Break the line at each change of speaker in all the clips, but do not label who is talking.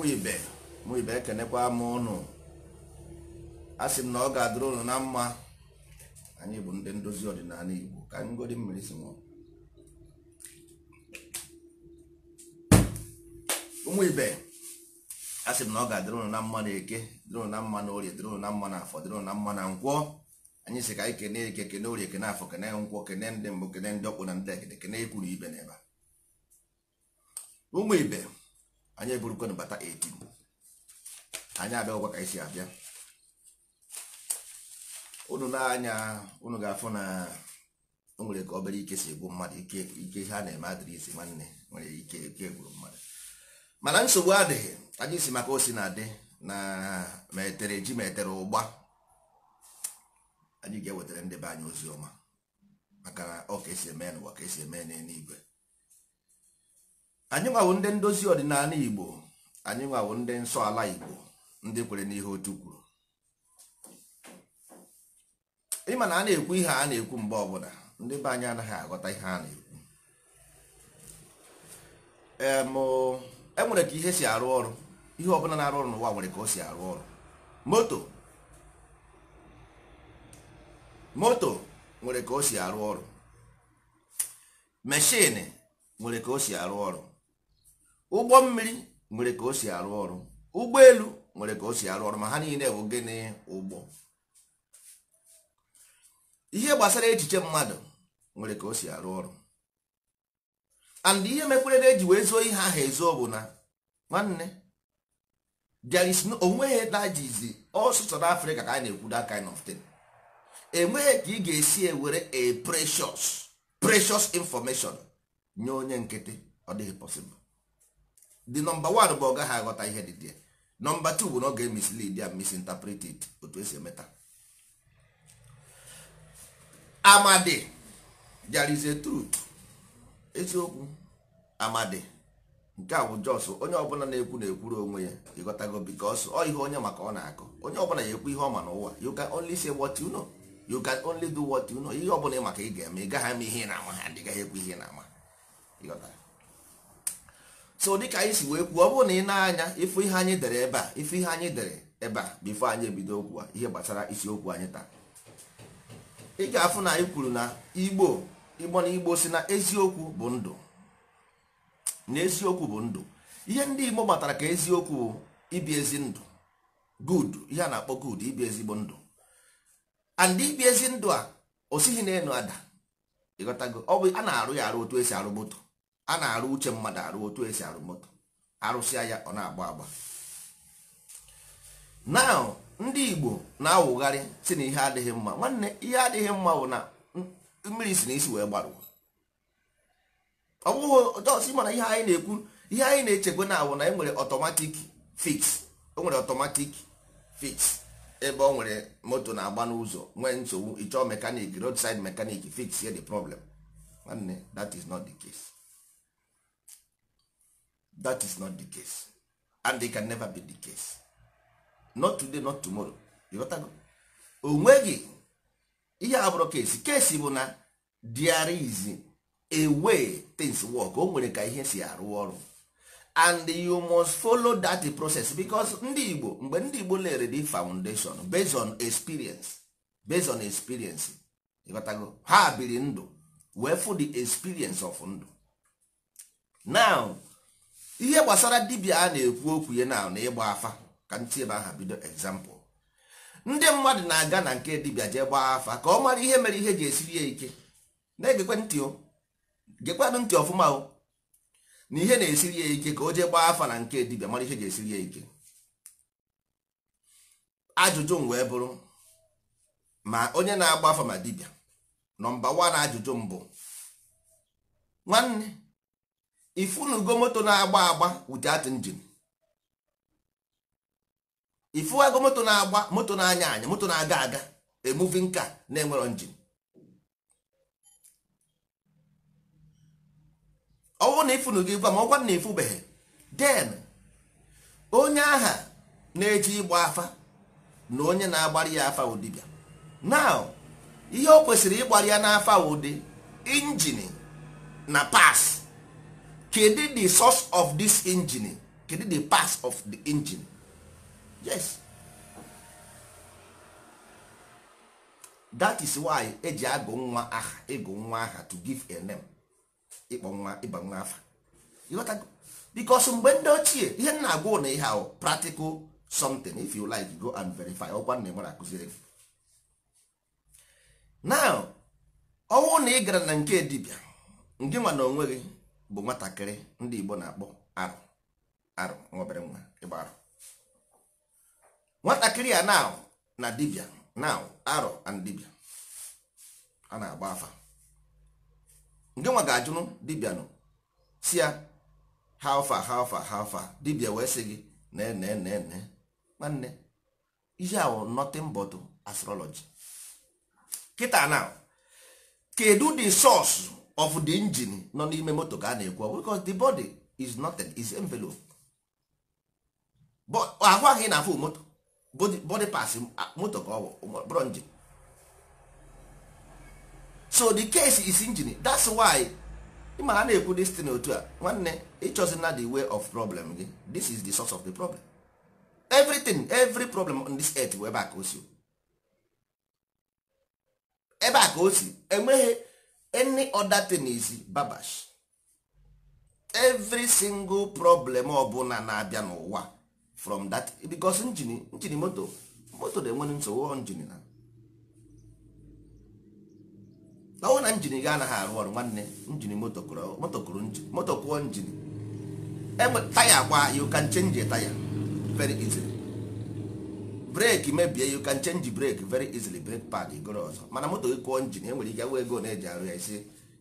ụkwụ ibe mụ ibe ekenekwa m ụnụ a m na ọ ga-adịrị ụnụ na mma anyị bụ ndị ndozi ọdịnala Igbo ka anyị godi mmiri si ụmụ ibe a sị m na ọ ga-adịrị ụnụ na mma na eke dịrị ụnụ na mma na orie dịrị ụnụ na mma na ka anyị kene eke kene orie kene afọ kene nkwọ kene ndị mbụ kene ndị ọkpụ na ndị ekene kene ikwuru ibe anyị eburukwana bata 18 anyị abịagwa ka anyị si abịa unu na-anya unu ga-afụ na o nwere ka obere ike si egbu mmadụ ike ha na-eme adịrịsị nwanne nwere ike ike gburu mmadụ mana nsogbu adịghị anyị si maka osi na-adị na ma etere ji ma ụgba anyị ga-ewetara ndị be anyị ozi ọma maka na ọ ka esi eme n'ụwa ka esi eme n'eluigwe anyị nwawo ndị ndozi ọdịnala igbo anyị nwawo ndị nsọ ala igbo ndị kwere n'ihe otu kwuru ịma na a na-ekwu ihe a na-ekwu mgbe ọbụla ndị be anyị anaghị aghọta ihe a na-ekwu enwere e ka ihe si arụ ọrụ ihe ọbụla na-arụ ọrụ n'ụwa nwere ka o si arụ ọrụ moto nwere ka o si arụ ọrụ meshini nwere ka o si arụ ọrụ ụgbọ mmiri nwere ka o si arụ ọrụ elu nwere ka o si arụ ọrụ ma ha niile bụ gịnị ụgbọ ihe gbasara echiche mmadụ nwere ka o si arụ ọrụ and ihe mekwere na eji wee zoo ihe ahụ ezo bụ na nwanne there is no onweghị dajizi ọsụsọ n'afrịka ka anyị na-ekwu that kind of thing enweghị ka ị ga-esi ewere a precious precious information nye onye nkịtị ọ dịghị possible the number one bụ ọ gaghị aghọta ihe dị dị nọmba two bụ na ọ ga-emislead and misinterpret otu esi emeta amadi there is a truth eziokwu amadi nke a bụ jos onye ọbụla na-ekwu na-ekwuru onwe ya ịghọtago because ọ ihe onye maka ọ na-akọ onye ọbụla ya ekwu ihe ọ ma n'ụwa you can only say what you know you can only do what you know ihe ọbụla ị maka ị ga-eme ị gaghị ama ihe ị na-ama ha ndị gaghị ekwu ihe ị na-ama ịghọtara so dịka anyị si wee kwuo ọ bụrụ na ị na-anya ịfụ ihe anyị dere ebe a ịfụ ihe anyị dere ebe a bifo anyị ebido okwu a ihe gbasara isiokwu anyị taa ị ga-afụ na anyị kwuru na igbo ịgbọ na igbo si na eziokwu bụ ndụ na eziokwu bụ ndụ ihe ndị igbo matara ka eziokwu bụ ibi ezi ndụ gud ihe a na-akpọ good ibi ezigbo ndụ and ibi ezi ndụ a osighi na n'elu ada ịghọtago ọ bụ a na-arụ ya arụ otu esi arụ moto a na-arụ uche mmadụ arụ otu esi arụ moto arụsịa ya ọ na-agba agba now ndị igbo na-awụgharị si na ihe adịghị mma nwanne ihe adịghị mma bụ na mmiri si na isi wee gbarụ ọ bụghị ọsi mana ihe anyị na-ekwu ihe anyị na-echekwa na awụ na e nwere ọtọmatik fix o nwere ọtọmatik fix ebe ọ nwere moto na-agba n'ụzọ nwee nsogbu ịchọọ mekanik roadside mekanik fix ya the problem nwanne that is not the case that is not the case and it can never be the case not today not tomorrow onwe onweghị ihe a bụrụ kesi kesi bụ na there is a way things work o nwere ka ihe si arụ ọrụ and you must follow that process because ndị Igbo mgbe ndị Igbo lere the foundation based on experience based on experience ịghọtago ha biri ndụ wee fụ the experience of ndụ now ihe gbasara dibịa a na-ekwu okwu ya na na ịgba afa ka ntị ebe aha bido egzampụl ndị mmadụ na-aga na nke dibịa jee gbaa afa ka ọ mara ihe mere ihe ga esiri ya ike na-egekwe ntị gekwanụ ntị ọfụma o na ihe na-esiri ya ike ka o jee gbaa afa na nke dibịa mara ihe ga-esiri ya ike ajụjụ m wee bụrụ ma onye na-agba afa ma dibịa nọmba wan ajụjụ mbụ nwanne ifunugo moto na-agba agba without engine ifuwago moto na-agba moto na-anya anya moto na-aga aga a car na-enwero engine ọ na ifunu gị gwa ma ọgwa na ifubeghị den onye aha na-eji ịgba afa na onye na agbari ya afa bịa naụ ihe o kwesịrị ịgbara ya n'afa ụdị injin na pas kedu the source of this engine kedu the parts of the engine yes that is why eji agụ nwa aha ịgụ nwa aha to give a name ịkpọ nwa ịba nwa afa bikos mgbe ndị ochie ihe na-agwa na ihe ahụ practical something if you like go and verify ọkwa nna nwere akụziri gị now ọnwụ na ị gara na nke edibia nke nwa na onwe gị bụ nwatakịrị ndị Igbo na-akpọ arụ arụ nwa nwa ịgba arụ nwatakịrị a now na dibia now arụ and dibia a na-agba afa ndị nwa ga-ajụrụ dibia nọ si ya how far how far how far dibia wee sị gị nee nee nee nee nwanne ihe ahụ nothing but astrology kịta now kedu di source of the engine nọ n'ime moto ka a na-ekwu because the body is nothing is envelope ahụ ahụ ị na-afụ moto body pass moto ka ọ bụrụ engine so the case is engine that's why ịma ha na-ekwu this thing otu a nwanne ịchọzi na the way of problem gị this is the source of the problem everything every problem on this earth bụ ebe a ka o si ebe a ka o si enweghị any other thing is babash every single problem ọbụla na-abịa n'ụwa from that because njini njini moto moto na nwere nsogbu njini na ọnwụ na njini gị anaghị arụ ọrụ nwanne njini moto kụrụ moto kụọ njini taya kwa you can change a taya very easily breki mebie you can change break very easily break pad igoro ọzọ mana moto gị kụọ njin e nwere ike wee ego na-eji arụ ya isi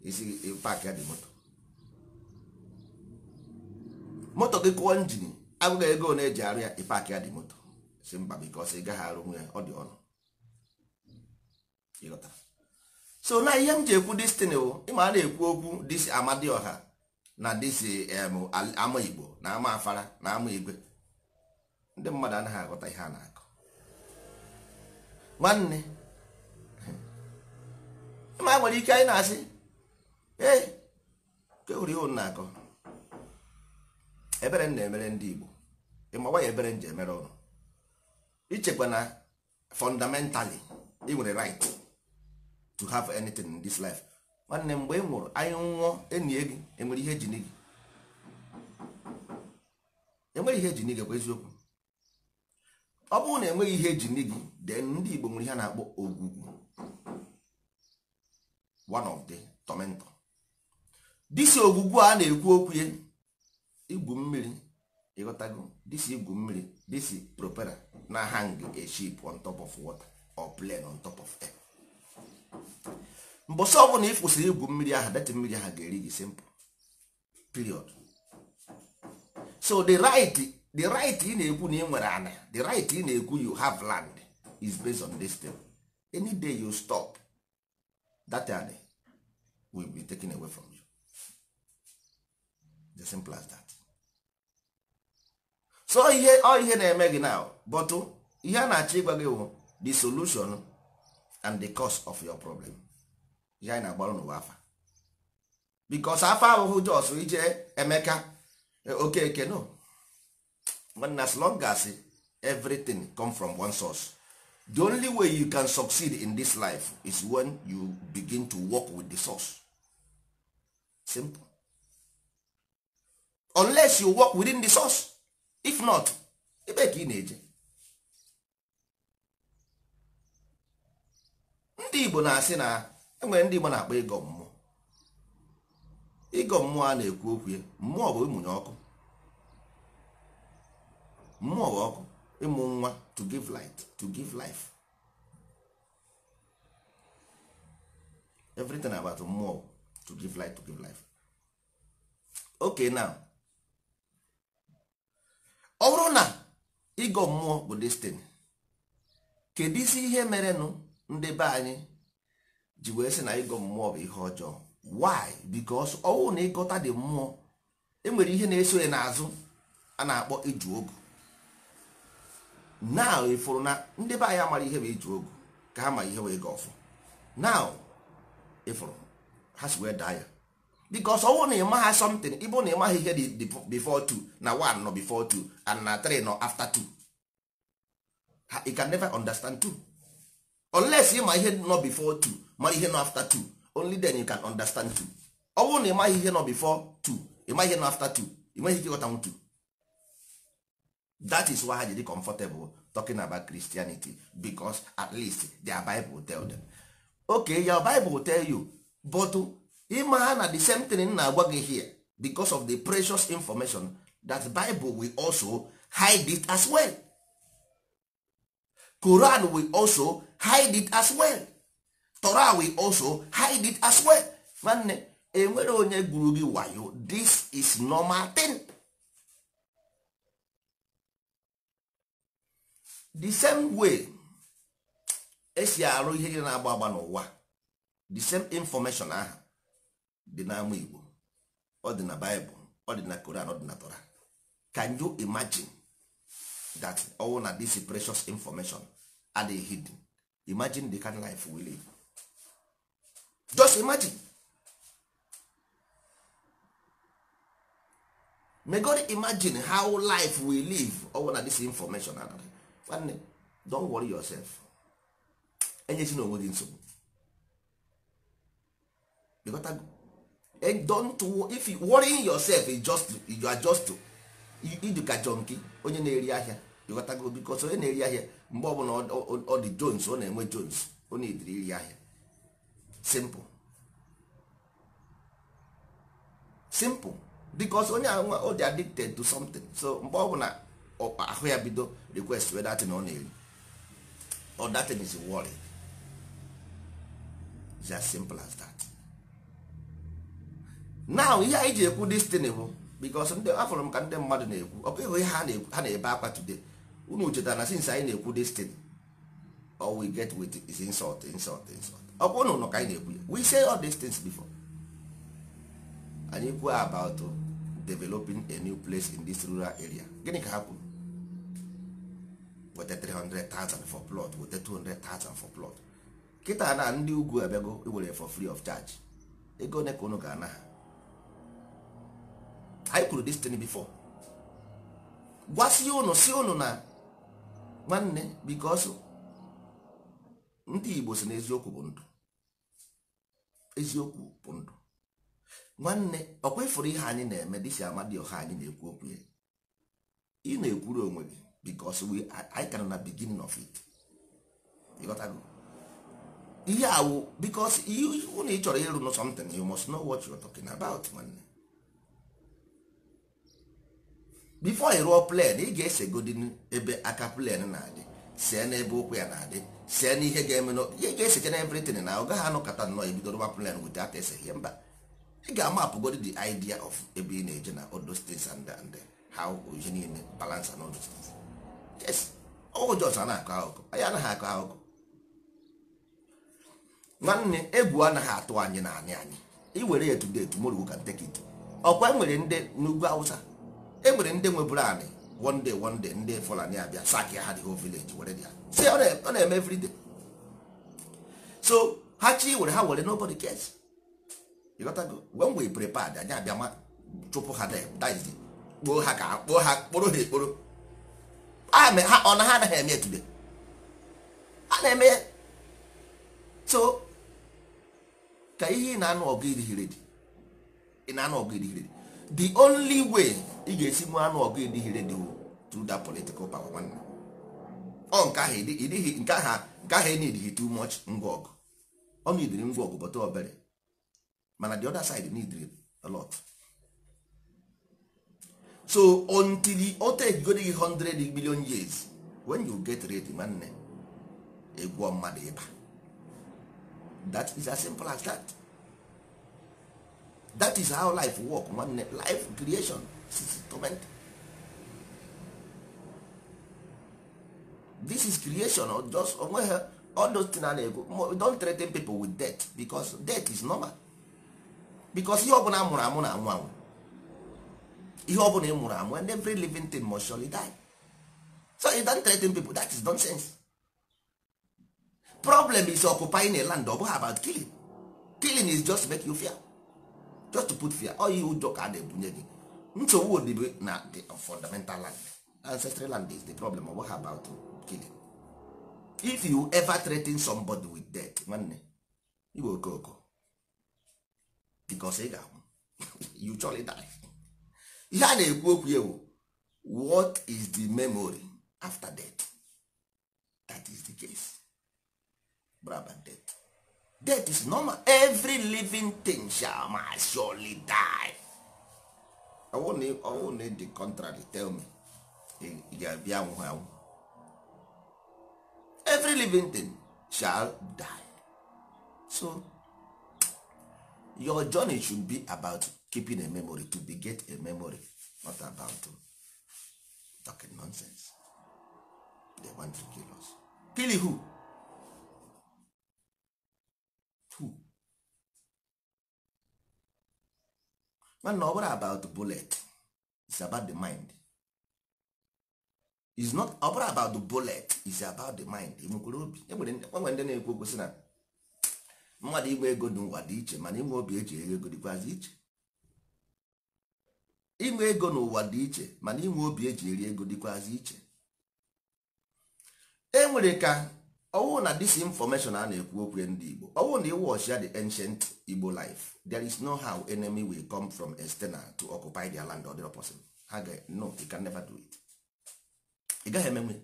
isi pak ya dị moto moto gị kụọ njin agụghị ego na-eji arụ ya ịpak ya dị moto si mba bikos ị gaghị arụ nwe ya ọ dị ọnụ ịghọtara so na ihe m ji ekwu destiny bụ ịma a na-ekwu okwu disi amadioha na disi ama igbo na ama afara na ama igwe ndị mmadụ anaghị aghọta ihe a na nwanne ma nwere ike anyị na-asị ee kewuri ihe na akọ ebere m na-emere ndị Igbo ịmawa ya ebere m ji emere ọrụ ichekwa na fundamentally ị nwere right to have anything in this life nwanne mgbe ị nwụrụ anyị nwụọ enyi gị enwere ihe ejini gị enwere ihe ejini gị bụ eziokwu ọ bụrụ na enweghị ihe eji nne gị de ndị Igbo nwere ihe na-akpọ ogwugwu one of the tormentor disi ogwugwu a na-ekwu okwu igwu mmiri ịghọtago disi igwu mmiri disi propera na hang a ship on top of water or plane on top of air mbọsị ọbụla ị kwụsịrị igwu mmiri ahụ deti mmiri ahụ ga-eri gị simple period so the right the right ị na-ekwu na ị nwere ana the right ị na-ekwu you have land is based on this thing any day you stop that land will be taken away from you the simple as that so ihe ọ ihe na-eme gị now but ihe a na-achọ ịgwa gị bụ the solution and the cause of your problem ihe anyị na-agbara n'ụwa afa because afa ahụhụ jos ije emeka eh, okeke no nwanne as long as everything come from one source the only way you can succeed in this life is when you begin to work with the source simple unless you work within the source if not ebe ka ị na-eje ndị Igbo na-asị na enwere ndị Igbo na-akpọ ịgọ mmụọ ịgọ mmụọ a na-ekwu okwu mmụọ bụ ịmụnye ọkụ mmụọ ọkụ ịmụ nwa to give light to give life everything about mmụọ to give light to give life okay now ọ bụrụ na ịgọ mmụọ bụ destin kedu isi ihe mere ndị be anyị ji wee sị na ịgọ mmụọ bụ ihe ọjọọ why because ọnwụ na ịgọta dị mmụọ enwere ihe na-eso ya n'azụ a na-akpọ iju ogu now ịfụrụ na ndị be anyị amara ihe bụ iji ogu ka ha ma ihe wee ga ọfụ now ịfụrụ ha si wee daa ya because ọwụ na ịma ha something ịbụ na ị ịmaghị ihe dị before two na one nọ before two and na three nọ after two ha ị can never understand two unless ma ihe nọ bifọ two mara ihe nọ after two only then you can understand two ọwụ na ị ịmaghị ihe nọ bifọ before ị ịmaghị ihe nọ after two ịmaghị ike ịghọtanwu two that is why i dey comfortable talking about christianity because at least their bible tell them okay your bible tell you but ima na the same thing na-agwa gị here because of the precious information that bible will also hide it as well koran will also hide it as well torah will also hide it as well nwanne enwere onye gụrụ gị wayo this is normal thing. the same way esi arụ ihe niile na-agba agba n'ụwa the same information ahụ dị n'ama Igbo ọ dị na Bible ọ dị na Koran ọ dị na can you imagine that all na this precious information are hidden imagine the kind life we live just imagine may God imagine how life we live all na this information another nwanne don't worry yourself enyesi na onwe gị nsogbu don't if you worrying yourself is just you are just iduka jonki onye na-eri ahịa ịghọtago bikos onye na-eri ahịa mgbe ọbụla ọ dị jones ọ na-enwe jones ọ na-ediri iri ahịa simple simple bikos onye ahụ ọ dị addicted to something so mgbe na. ọkpa ahụ ya bido request wee datin ọ na-eri or datin is worry it's as simple as that now ihe anyị ji ekwu destiny bụ because ndị afọrọ m ka ndị mmadụ na-ekwu ọ bụ ihe ha na-ebe akwa today unu chetara na since anyị na-ekwu destiny or we get with is insult insult insult ọ bụ ka anyị na-ekwu ya we say all these things before anyị kwuo about developing a new place in this rural area gịnị ka ha kwuru weta 300,000 for plot weta 200,000 for plot kịta na ndị ugwu abịago iwere for free of charge ego ole ka unu ga-ana ha anyị kwuru this thing before gwasị unu si unu na nwanne because ndị Igbo si na eziokwu bụ ndụ eziokwu bụ ndụ nwanne okwa kwefuru ihe anyị na-eme dịsi amadi ọha anyị na-ekwu okwu ya ị na-ekwuru onwe gị because we anyị kana na beginning of it ihe awụ oh, because ụna ị chọrọ ịrụ n something you must know what you are talking about nwanne before i ruo plan ị ga-esegodi ese ebe aka plan na-adị see n'ebe ụkwụ ya na-adị see n'ihe ga-eme ihe ga-esecha na everything na ọ gaghị kata nnọọ ebido rụwa plan wit aka ese ihe mba ị ga-amapụgodi the idea of ebe ị na-eje na odo those and how ihe niile balance and all those ọjọs na-akọ akụkọ anyị anaghị akọ akụkọ nwanne egwu anaghị atụ anyị na anị anyị iwere ya today tomorrow can take it ọkwa enwere ndị n'ugwu awụsa enwere ndị nweburu anị one day ndị fulani abịa sak ha the whole village were ya si ọ na-eme everyday so ha chi were ha were nobody cares you go when we prepared anyị abịa chụpụ ha there that is kpoo ha ka kpoo ha kporo ha ekporo ọ na ha anaghị eme etube a na-eme so ka ihe ị na-anụ ọgụ idighi redi ị na-anụ ọgụ idighi redi the only way ị ga-esi mụ anụ ọgụ idighi redi wu through that political power ọ nke ahụ idighi nke ahụ nke ahụ enidighi too much ngwa ọgụ ọ na idiri ngwa ọgụ bọta obere mana the other side neediri a lot so until o tegodi gị 100 million years when you get ready nwanne egwuo mmadụ ịba that is as simple as that that is how life work nwanne life creation torment this is creation or just onwe all those things a na-ekwu don threaten people with death because death is normal because ihe ọ bụla a mụrụ amụ na anwụ anwụ ihe ọ bụla ị mụrụ amụ and every living thing must surely die so you don't threaten people that is nonsense problem is occupying a land ọ bụghị about killing killing is just make you fear just to put fear ọ you ụjọ ka a na gị nsogbu odibo na the fundamental land ancestral land is the problem ọ bụghị about killing if you ever threaten somebody with death nwanne iwe okooko because ị ga-ahụ you surely die ihe a na-ekwu okwu ya bụ what is the memory after death that is the case braba death death is normal every living thing shall must surely die ọwụ na the contrary tell me ị ga-abịa anwụghị anwụ every living thing shall die so your journey should be about keeping a memory to get a memory not about to talking nonsense they want to kill us kill who who man ọ bụrụ about bullet is about the mind is not ọ bụrụ about the bullet is about the mind enwekwere obi enwere ndị na-ekwu okwu sị na mmadụ inwe ego n'ụwa dị iche mana inwe obi eji eghe ego dịkwazị iche inwe ego n'ụwa dị iche mana inwe obi eji eri ego dịkwazị iche e nwere ka ọwụ na disinformation a na-ekwu okwu ndị Igbo ọwụ na ịwọchia the ancient Igbo life there is no how enemy will come from external to occupy their land or their person ha ga no you can never do it ị gaghị emenwe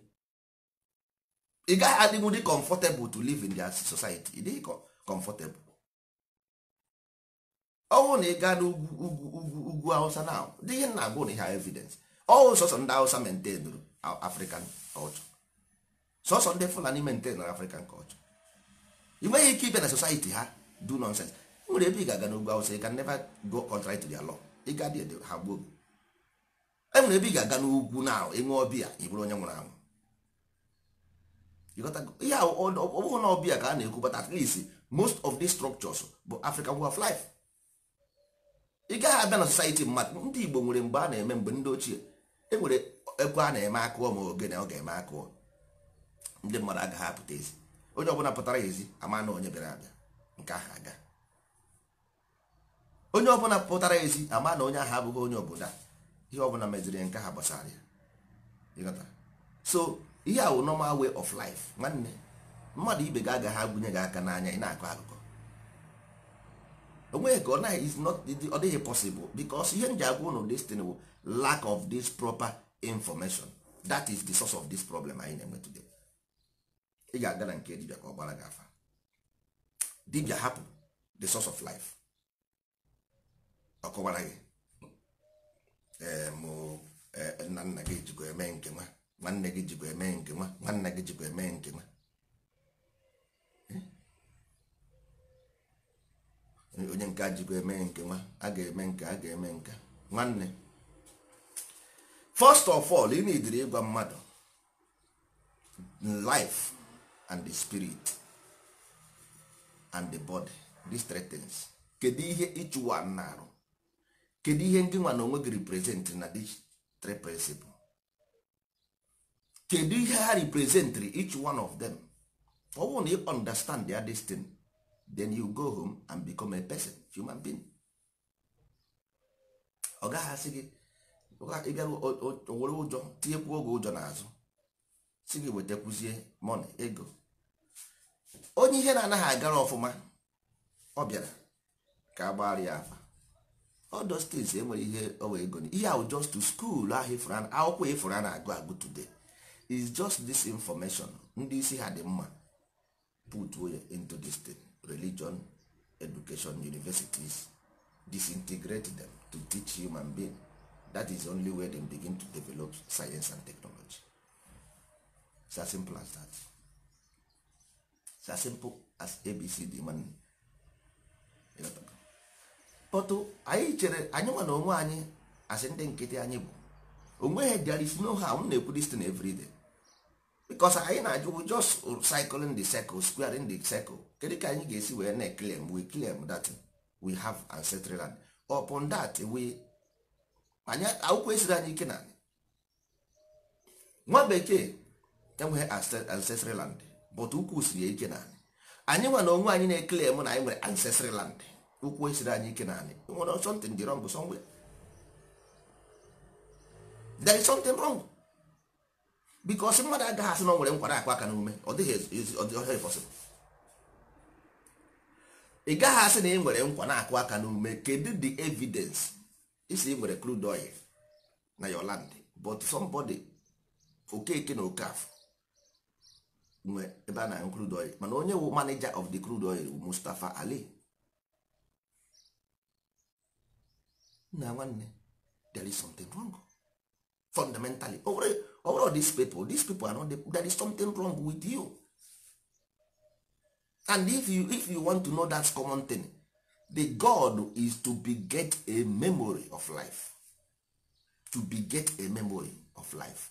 ị gaghị adịnwu dị comfortable to live in their society ị dịghị comfortable ọnwụ na ị gaa n'ugwu ugwu ugwu hausa na dị ihe na agwụ na ihe evidence ọwụ sọsọ ndị awụsa maintain african culture sọsọ ndị fulani maintain african culture ị nweghị ike ibe na society ha do nonsense nwere ebe ị ga-aga n'ugwu awụsa ị can never go contrary to their law ị ga dị ha gbuo enwere ebe ị ga-aga n'ugwu na enwe ọbịa ị bụrụ onye nwụrụ anwụ ihe ọ na ọbịa ka a na-ekwu but at least most of these structures bụ african way of life ị gaghị abịa na society mmadụ ndị Igbo nwere mgbe a na-eme mgbe ndị ochie e nwere ekwe a na-eme akụọ ma ogene ọ ga-eme akụọ ndị mmadụ agaghị apụta ezi onye ọbụla pụtara ezi ama na onye bịara abịa nke aha aga onye ọbụla pụtara ezi ama na onye ahụ abụghị onye obodo ihe ọbụla meziri nke ha gbasara ya so ihe a wụ normal wey of life nwanne mmadụ ibe ga agaghị agụnye gị aka n'anya ị na-akọ akụkọ onweghị ka ọ naghị is not ọ dịghị possible because ihe nji agwa ụnụ destin bụ lack of this proper information that is the source of this problem anyị na-enwe today ị ga-aga na nke dibia ka ọ gbara gị afa dibia hapụ the source of life ọ gị eh, eh, nna nna gị jikwa eme nke nwa nwanne gị jikwa eme nke nwa nwanne gị jikwa eme nke nwa onye nke ajịkwa eme nke nwa a ga-eme nke a ga-eme nke nwanne first of all ị na ịgwa mmadụ life and the spirit and the body these three things kedu ihe ịchụwa na-arụ kedu ihe ndị nwa na onwe gị represent na these three principle kedu ihe ha representri each one of them ọ bụrụ na ị understand their destiny then you go home and become a person human being ọ gaghị asị gị ịbịarụ owere ụjọ tinyekwuo oge ụjọ n'azụ si gị wetakwuzie mọni ego onye ihe na-anaghị agara ọfụma ọ bịara ka a ya afa ọdọ steeti enwere ihe owe ego ihe ahụ just to school ahụ ifụra akwụkwọ ifụra na-agụ agụ today is just this information ndị isi ha dị mma put into this thing religion education universities disintegrate them to teach human being that is only where they begin to develop science and technology it's as simple as that it's as simple as abcd man pọtụ anyị chere anyị nwa na onwe anyị asị ndị nkịtị anyị bụ onweghị there is no harm na-ekwu this thing every because anyị na-ajụ just cycling the circle square in the circle kedu ka anyị ga-esi wee na claim we claim that we have ancestral land upon that we anyị akwụkwọ esiri anyị ike na nwa bekee enweghị ancestral land but ukwu siri ike na anyị nwa na onwe anyị na-eclaim na anyị nwere ancestral land ukwu esiri anyị ike na anyị nwere something dị wrong somewhere there is something wrong bikos mmadụ agaghị asị na ọ nwere nkwara akụ aka n'ume ọ dịghị pọsịbụl ị gaghị asị na ị nwere nkwa na-akụ aka n'ume kedu the evidence isi ị nwere crude oil na your land but somebody okeke na okaf nwe ebe a na crude oil mana onye wu manager of the crude oil Mustafa Ali na nwanne there is something wrong fundamentally o nwere all these people these people are not the, there is something wrong with you and if you if you want to know that common thing the god is to be get a memory of life to be get a memory of life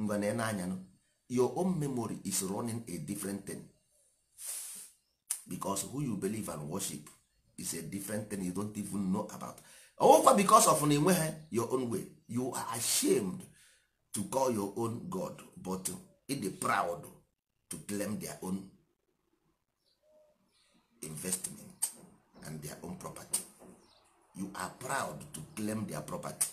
ngwana na anya your own memory is running a different thing because who you believe and worship is a different thing you don't even know about ọwụkwa because of na enweghị your own way you are ashamed to call your own god but e dey proud to claim their own investment and their own property you are proud to claim their property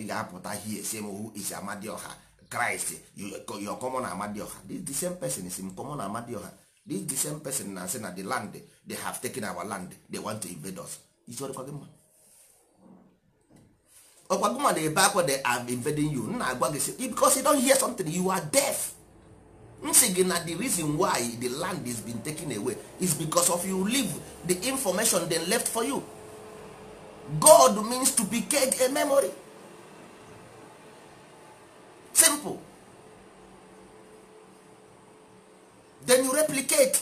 ị ga-apụta here say: who is amadioha christ your common amadioha this the same person is in common amadioha this the same person na say na the land they have taken our land they want to invade us is ọrịkwa gị mma ọkwa gụma na ebe akwa they are invading you nna agwa gị because you don't hear something you are deaf m gị na the reason why the land is been taken away is because of you leave the information dem left for you god means to be get a memory simple then you replicate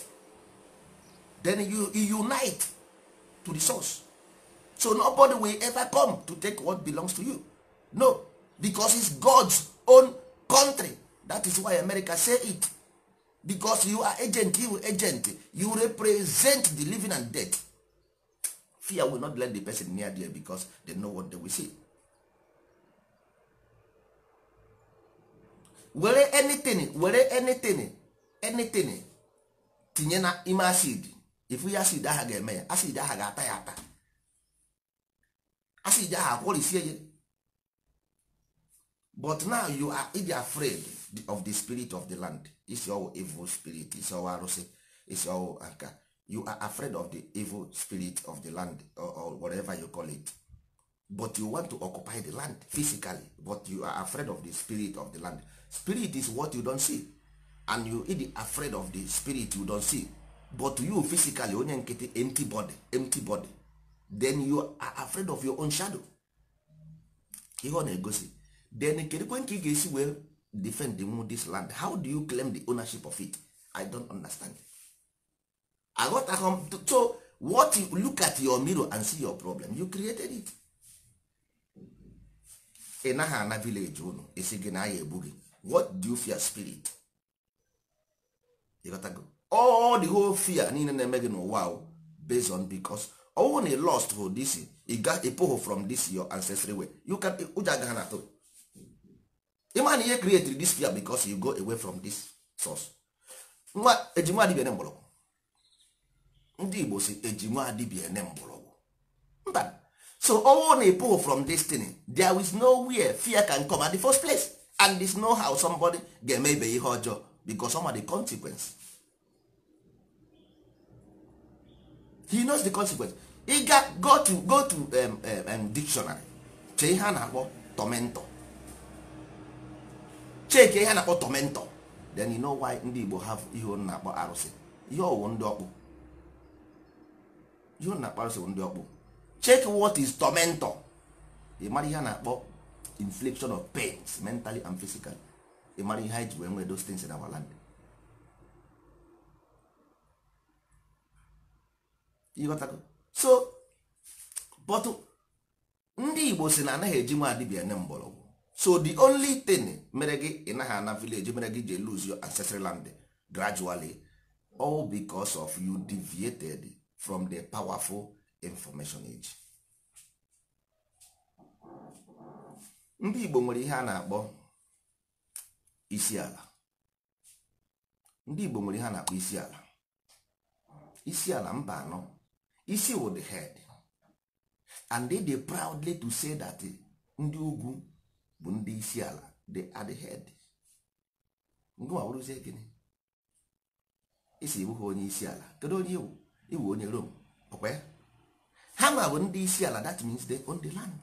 then you, you unite to the source so nobody will ever come to take what belongs to you no because it's god's own country that is why america say it because you are agent you agent you represent the living and dead fear will not let the person near there because they know what they will see were anything were anything anything tinye na ime acid if ya acid aha ga-eme acid aha ga-ata ya ata asị ije ahụ akwọrisie but now you are idi afraid of the spirit of the land isi ọwụ evil spirit isi ọwụ arụsị isi ọwụ aka you are afraid of the evil spirit of the land or, whatever you call it but you want to occupy the land physically but you are afraid of the spirit of the land spirit is what you don't see and you idi afraid of the spirit you don't see but you physically onye nkịtị empty body empty body then you are afraid of your own shadow ihe ọ na-egosi then kedukwe ka ị ga-esi wee defend nwu this land how do you claim the ownership of it i don't understand aghọtaghị m so what you look at your mirror and see your problem you created it ị naghị ana village unu isi gị na agha egbu gị what do you fear spirit ịghọtago all the whole fear niile na-eme gị n'ụwa based on because ọnwụ na lost for this ịpụghụ from this your ancestry way you can ụjọ agaghị na atụ ihe create this fear because you go away from this source nwa ejinwa adịbịa mgbọrọgwụ ndị igbo si ejinwa mgbọrọgwụ mba so ọnwụ na ịpụghụ from thing there is no where fear can come at the first place and there's no how somebody ga-eme ibe ihe ọjọọ because some are the consequence he knows the consequence ga go to go to dictionary chee ihe a na-akpọ tomentọ cheke ihe a na-akpọ tomentọ then you know why ndị Igbo have ihe ọ na-akpọ arụsị ihe ọwụ ndị ọkpụ ihe ọ na-akpọ arụsị bụ ndị ọkpụ check what is tomentọ ị mara ihe a na-akpọ inflection of pains mentally and physically ị mara ihe anyị ji wee nwee those things in our land ịghọtago so but ndị igbo si na anaghị eji nwa adịbịa ne mgbọrọgwụ so the only thing mere gị ị naghị ana vileji mere gị ji lose your ancestral land gradually all because of you deviated from the powerful information age. ndị igbo nwere ihe a na-akpọ isi ndị igbo nwere ihe a na-akpọ isi ala isi ala mba anọ isi wụ the head and they dey proudly to say that eh, ndị ugwu bụ ndị isi ala they are the head ngụwa bụrụzie gịnị isi iwu ha onye isi ala kedu onye iwu iwu onye rom ọkwa ya ha ma bụ ndị isi ala that means they own the land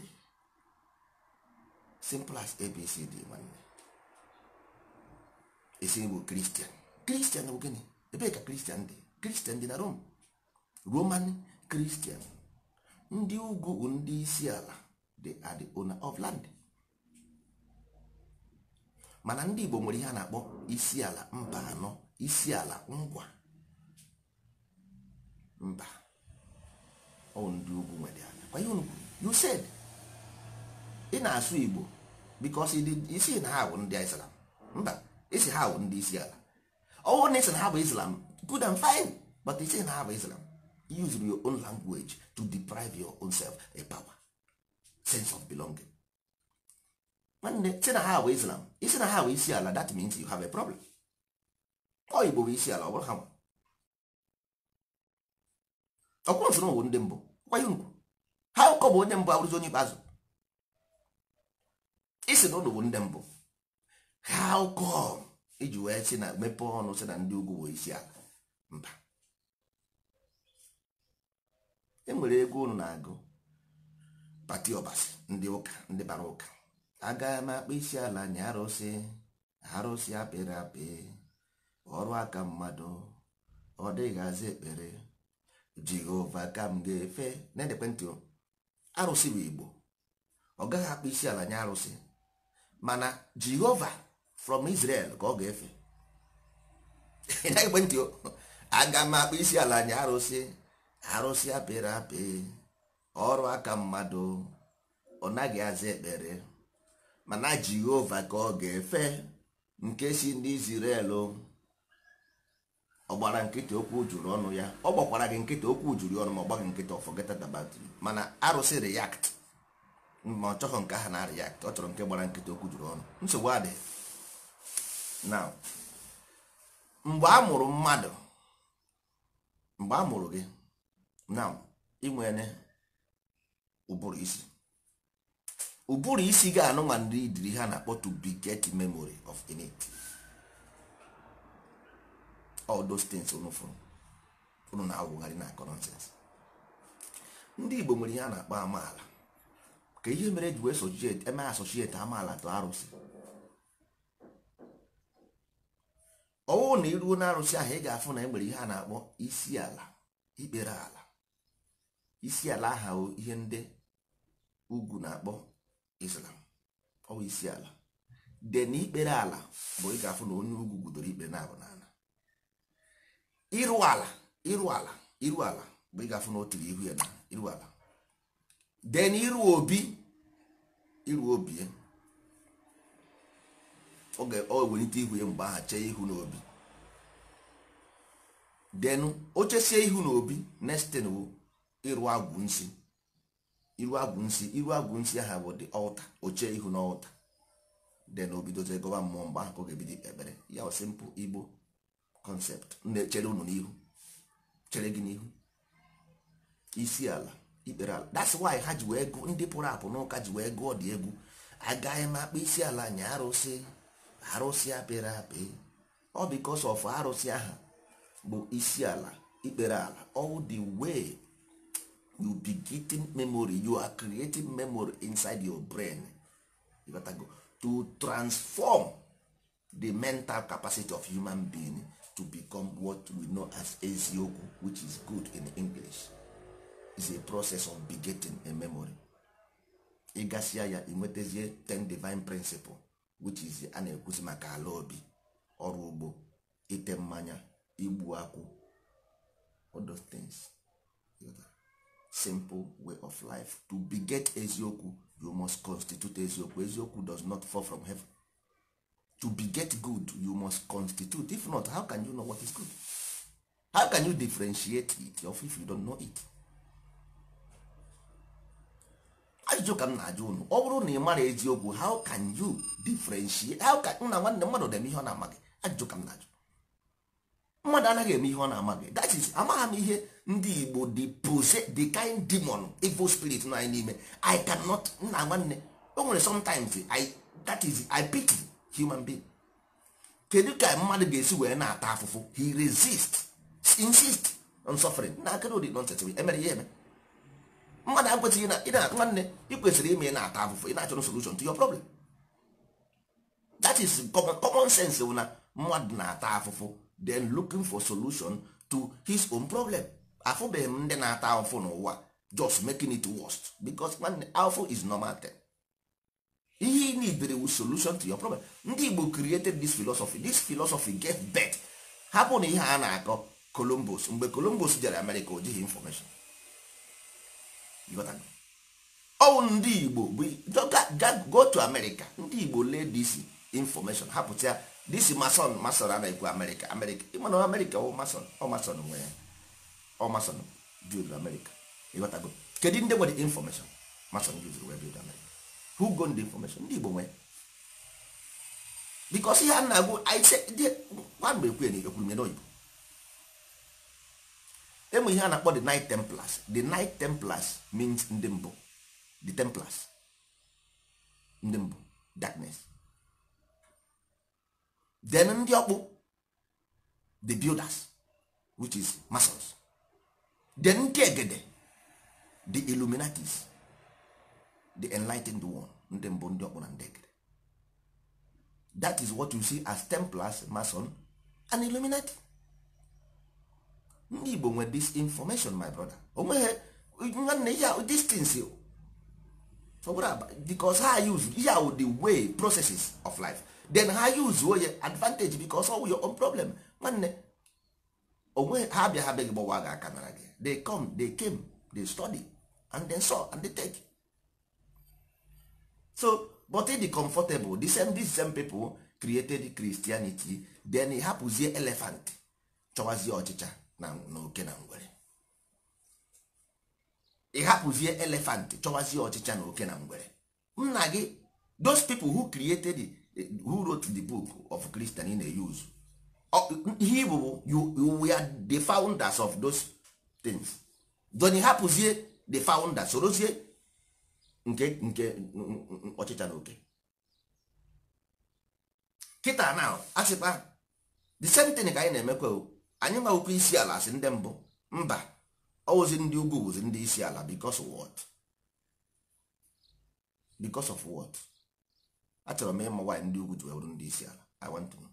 simple as abcd nwanne isi bụ kristian kristian bụ gịnị ebee ka kristian dị kristian dị na rom roman kristian ndị ugwu bụ ndị isi ala dị adị the owner of land mana ndị igbo nwere ihe a na-akpọ isi ala mba anọ isi ala ngwa mba ọ ndị ugwu nwere ala kwa ihe ugwu you said ị na-asụ igbo because isi na ha bụ ndị islam mba isi ha bụ ndị isi ala ọwụ na isi na ha bụ islam good and fine but isi na ha bụ islam use your own language to deprive your own self a power sense of belonging nwanne si na ha bụ islam isi na ha bụ isi ala that means you have a problem ọ igbo bụ isi ala ọ bụrụ ha nwa ọkwụ nsoro bụ ndị mbụ kwanye ugwu ha ụkọ bụ onye mbụ abụrụzi onye ikpeazụ isi na ụlọ bụ ndị mbụ ha ụkọ iji wee si na mepee ọnụ si na ndị ugwu bụ isi ala mba enwere ego unu na-agụ pati ọbasi ndị ụka ndị bara ụka Agaghị m akpa isi ala nye arụsị arụsị apịrị apị ọrụ aka mmadụ ọ dịghịzi ekpere jehova ka m ga-efe na-edekwentị arụsị bụ igbo ọ gaghị akpa isi ala nye arụsị mana jehova from israel ka ọ ga-efe na ekwentị aga m akpa isi ala nye arụsị arụsị apịrị apị ọrụ aka mmadụ ọ naghị aza ekpere mana jehova ka ọ ga-efe nke si ndị Israel ọ gbara nkịta okwu juru ọnụ ya ọ gbakwara gị nkịta okwu juru ọnụ ma ọ gbaghị nkịta forget about you mana arụsị react ma ọ chọghị nke ahụ na react ọ chọrọ nke gbara nkịta okwu juru ọnụ nsogbu adị na mgbe a mụrụ mmadụ mgbe a mụrụ gị na inwere ụbụrụ isi ụbụrụ isi ga-anụ ma ndị idiri ha na-akpọ to beget memory of innate all those things unu na-awụgharị na akọ ndị Igbo nwere ihe a na-akpọ amaala ka ihe mere e ji wee sochiet eme asoshieti amaala tụ arụsị ọwụ na iruo na ahụ ị ga-afụ na e nwere ihe a na-akpọ isi ala ikpere ala isi ala aha ihe ndị ugwu na-akpọ islam ọ bụ isi ala de ikpere ala bụ ị ga-afụ na onye ugwu gudoro ikpe na-abụ n'ala Iru ala iru ala iru ala bụ ị ga-afụ na o tiri ihu ya na iru ala de na obi iru obi ọ oge ọ welite ihu ya mgbe aha chee ihu n'obi denu o chesie ihu n'obi nestin iru agwụ nsị iru agwụ nsị iru agwụ aha bụ dị ọta oche ihu na ọta de na obidozie gọba mmụọ mgbe ahụ ọ ga-ebido ekpere ya simpụl igbo kọnsept na-echere unu n'ihu chere gị n'ihu isi ala ikpere ala that's why ha ji wee gụọ ndị pụrụ apụ n'ụka ji wee gụọ dị egwu agaghị m akpa isi ala nya arụsị arụsị apịrị apị ọ bikos of arụsị aha bụ isi ala ikpere ala all dị way you be getting memory you are creating memory inside your brain to, go. to transform the mental capacity of human being to become what we know as eziokwu which is good in english is a process of begetting a memory ịgasịa ya inwetazie ten divine principle which is a na ekwusi maka ala obi ọrụ ugbo ite mmanya igbu akwụ all those things. simple way of life to beget eziokwu you must constitute eziokwu eziokwu does not fall from heaven to beget good you must constitute if not how can you know what is good how can you differentiate it of if you don't know it ajụjụ ka m na-ajụ unu ọ bụrụ na ị mara eziokwu how can you differentiate how can nna nwanne mmadụ deme ihe ọ na-amaghị ajụjụ ka m na-ajụ mmadụ anaghị eme ihe ọ na-amaghị that is amagha m ihe ndị igbo the pose the kind demon evil spirit nọ anyị n'ime i cannot nna nwanne o nwere sometimes i that is i pity human being kedu ka mmadụ ga-esi wee na-ata afụfụ he resist insist on suffering na akara ụdị nonsense emere ya eme mmadụ akwesịghị na ịna nwanne ị kwesịrị ime na-ata afụfụ ị na-achọrọ solution to your problem that is common, common sense na mmadụ na-ata afụfụ then looking for solution to his own problem afụbeghị m ndị na-ata ahụfụ n'ụwa just making it worst because nwanne is normal thing ihe ị nidere wu solution to your problem ndị Igbo created this philosophy this philosophy get birth hapụ na ihe a na-akọ Columbus mgbe Columbus jere America o jighị information ọwụ ndị Igbo bụ go to America ndị Igbo lee this information hapụta ya this mason mason a na-ekwu America America ịmana America ọ mason ọ mason nwere ya ọ mason build America ịghọtago kedu ndị nwere information mason build wee build America who go ndị information ndị Igbo nwee because ihe a na-agụ gwa mgbe ekwe na ekwuru nye n'oyibo emụ ihe a na-akpọ the Knight Templars the night Templars means ndị mbụ the Templars ndị mbụ darkness then ndị ọkpụ the builders which is masons the nkegede the illuminatis the enlightened one ndị mbụ ndị ọkpụ na ndị egede that is what you see as templars mason and illuminati ndị igbo nwere this information my brother onweghị nwanne ihe distance because ha use ihe wụ the way processes of life then ha use oye advantage because of your own problem nwanne onwe ha bịa ha bịa gị gbawa gị aka nara gị they come they came they study and they saw and they take so but ịdị comfortable the same these same people created Christianity then ị hapụzie elephant chọwazie ọchịcha na oke na ngwere ị hapụzie chọwazie ọchịcha na oke na ngwere nna gị those people who created who wrote the book of Christian na-use ihe igbo bụ you were the founders of those things doni hapụzie the founders sorozie nke nke ọchịcha na oke kịta na sịkpa the same thing ka anyị na-emekwa anyị nwawụkwa isi ala si ndị mbụ mba ọwụzi ndị ugwu wụzi ndị isi ala because of what because of what achọrọ m ịma nwaanyị ndị ugwu ji wee ndị isi ala I want to know.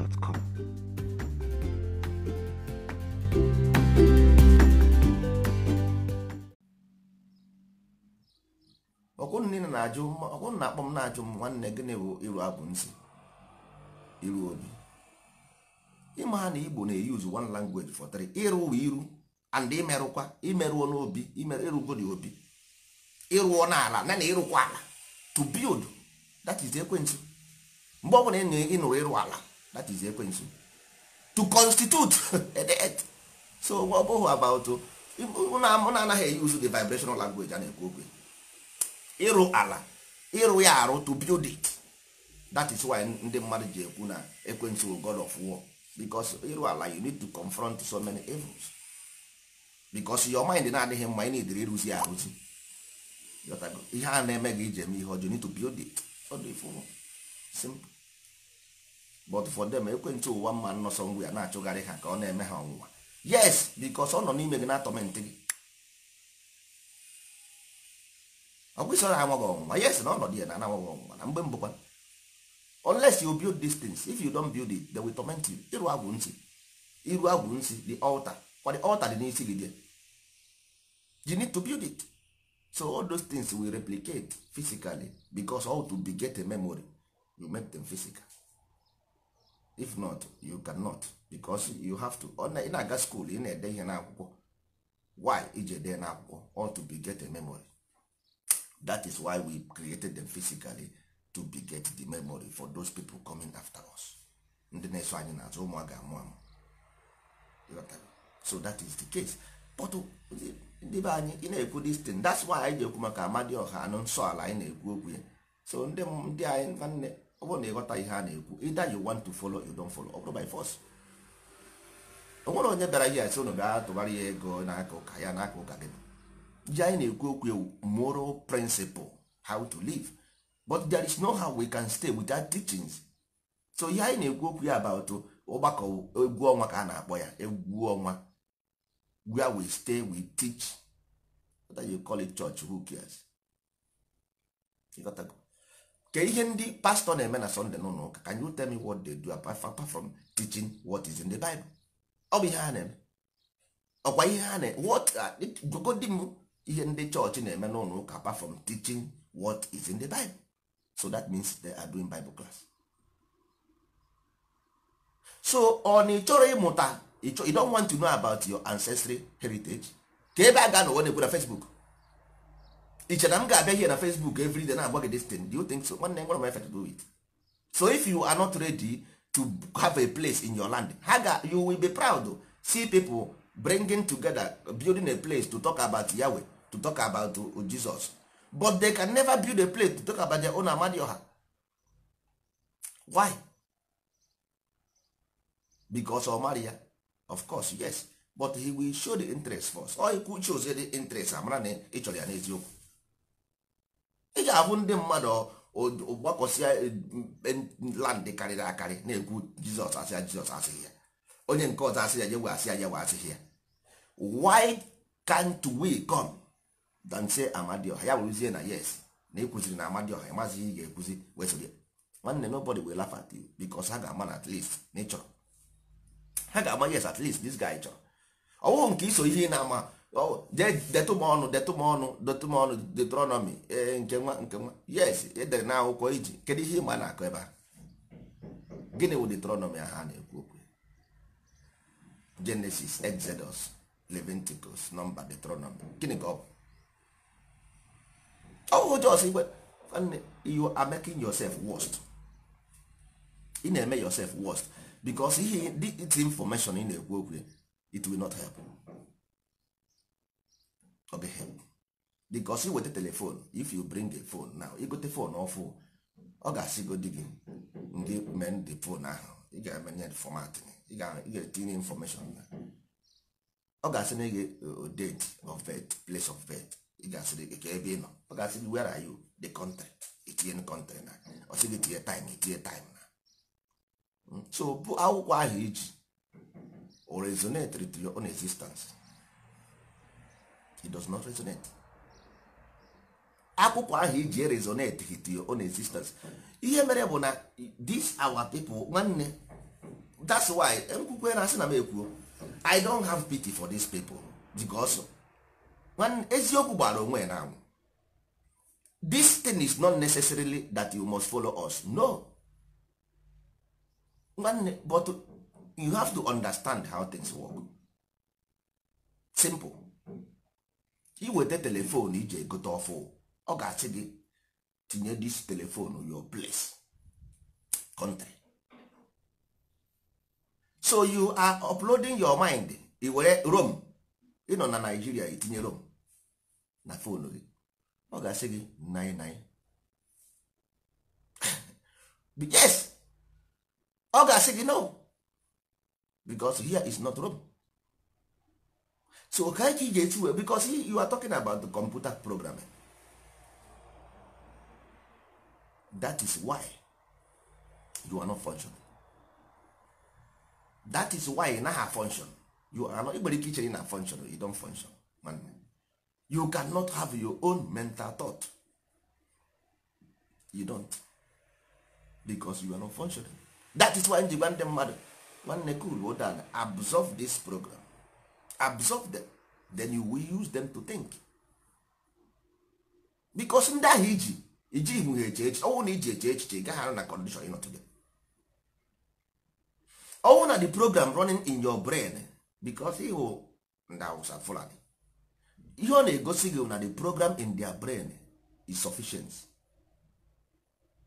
gmail.com. na-akpọ m na-ajụ m nwanne gịnị bụ iru abụ nsị iru obi ịma ha na igbo na-eyuzu one language for three ịrụ ụwa iru and imerụkwa imerụọ n'obi ịrụgodi obi ịrụọ n'ala na na ịrụkwa ala to build that is ekwentị mgbe ọ bụla ị nụrụ ịrụ ala that is ekwensu to constitute edet so ọ bụghị about mụ na anaghị use the vibrational language a na-ekwu okwu ịrụ ala ịrụ ya arụ to build it that is why ndị mmadụ ji ekwu na ekwensu god of war because ịrụ ala you need to confront so many evils because your mind na-adịghị mma ị na-edere ịrụzi ya arụzi ihe a na-eme gị iji eme ihe ọjọọ need to build it ọ dị simple but for them ekwentị ụwa mma nnọsọ ngwa ya na-achụgharị ha ka ọ na-eme ha ọnwụnwa yes because ọ nọ n'ime gị na-atọmentị gị ọgwụsọ na amaghị ọnwụnwa yes na ọnọdụ ya na anaghị ọnwụnwa na mgbe mbụkwa unless you build these things if you don't build it they will torment you iru agwụ nsị iru agwụ nsị the altar kwa the altar dị n'isi gị there you need to build it so all those things will replicate physically because all to be get a memory you make them physical if not you cannot because you have to ị na-aga school ị na-ede ihe n'akwụkwọ why iji ede n'akwụkwọ all to get a memory that is why we created them physically to be get the memory for those people coming after us ndị na-eso anyị n'azụ ụmụ a amụ amụ so that is the case but oh, ndị be anyị ị na-ekwu this thing that's why anyị ji ekwu maka Amadioha anụ nsọ ala anyị na-ekwu okwu ya so ndị ndị anyị nwanne ọ bụrụ na ịghọta ihe a na-ekwu either you want to follow you don't follow ọ bụrụ by force o nwere onye bịara ihe asị ụnụ bịa tụbara ya ego n'aka ụka ya n'aka ụka gị ji anyị na-ekwu okwu ewu moral principle how to live but there is no how we can stay without teachings so ihe anyị na-ekwu okwu ya about ụgbakọ egwu ọnwa ka a na-akpọ ya egwu ọnwa where we stay we teach whether you call it church who cares ke ihe ndị pastọ na-eme na sọnde nọ ụka can you tell me what they do apart from teaching what is in the bible ọ bụ ihe ha na-eme ọkwa ihe ha na-eme what uh, m ihe ndị chọọchị na-eme n'ụlọ ụka apart from teaching what is in the bible so that means they are doing bible class so ọ na ị chọrọ ịmụta you don want to know about your ancestry heritage ka ebe a ga na onye na Facebook iche na m ga-abịa here na facebook every day na-agba gị tin do you think so nwanne nwere m efe to do it so if you are not ready to have a place in your land ha ga you will be proud see people bringing together building a place to talk about yahweh to talk about jesus but they can never build a place to talk about their own amadioha why because omaria of course yes but he will show the interest first or he could show the interest amara na ịchọrọ ya n'eziokwu ị ga-ahụ ndị mmadụ gbakọsịa e, e, land karịrị akarị na-ekwu jizọs asị ya jizọs asịghị ya onye nke ọzọ asị ya yewe asị ya yewe asịghị ya why can't we come dan say amadioha ya bụrụzie na yes na ịkụziri na amadioha ịmazi ihe ị ga-ekuzi wesịrị nwanne nobody will laugh at you because ha ga-ama na at least na ịchọrọ ha ga-ama yes at least this guy chọrọ ọwụghị nke iso ihe ị na-ama Oh, detụ m ọnụ detụ m ọnụ detụ m detronọmi e, nke nwa nke nwa yes edere na akwụkwọ iji kedu ihe ịma na-akọ ebe a gịnị wụ detronọmi ha na-ekwu okwu Genesis Exodus Leviticus nọmba detronọmi gịnị ka ọ bụ ọwụ jos igwe nwanne you are making yourself worst ị na-eme yourself worst because ihe dị this information ị na-ekwu okwu it will not help. ọ bụ him because ị weta telefon if you bring a phone now igote phone ọfụ ọ ga-asị go di gị ndị men the phone ahụ ị ga-emenye format ị ga-etinye information na ọ ga-asị na gị date of birth place of birth ị ga-asị gị ka ebe ị nọ ọ ga-asị gị where are you the country itinye country ah. na ọ sị gị tinye time itinye time na ah. hmm? so bụ akwụkwọ ahụ iji o resonate with your own existence it does not resonate akwụkwọ ahụ iji resonate hit your own existence ihe mere bụ na this our people nwanne that's why nkwukwe na asị na m ekwuo i don't have pity for these people because nwanne eziokwu gbara onwe na anwụ this thing is not necessarily that you must follow us no nwanne but you have to understand how things work simple iweta telefon iji egote ọfụ ọ ga-asị gị tinye dis telefon your place country so you are uploading your mind i were Rome ịnọ na Nigeria itinye Rome na fonu gị ọ ga-asị gị yes ọ ga-asị gị no because here is not Rome so ka ike ị ga-eti wee because you are talking about the computer programming that is why you are not functioning that is why ị naghị function you are not igbere ike ichere na function you don't function man you cannot have your own mental thought you don't because you are not functioning that is why nji gwa ndị mmadụ nwanne cool hold on absorb this program absorb them then you will use them to think because ndị ahụ iji iji ihu ha eche echiche ọnwụ na iji eche echiche ị gaghị arụ na condition you not today ọnwụ na the program running in your brain because ịhụ ndị awụsa fulani ihe ọ na-egosi gị na the program in their brain is sufficient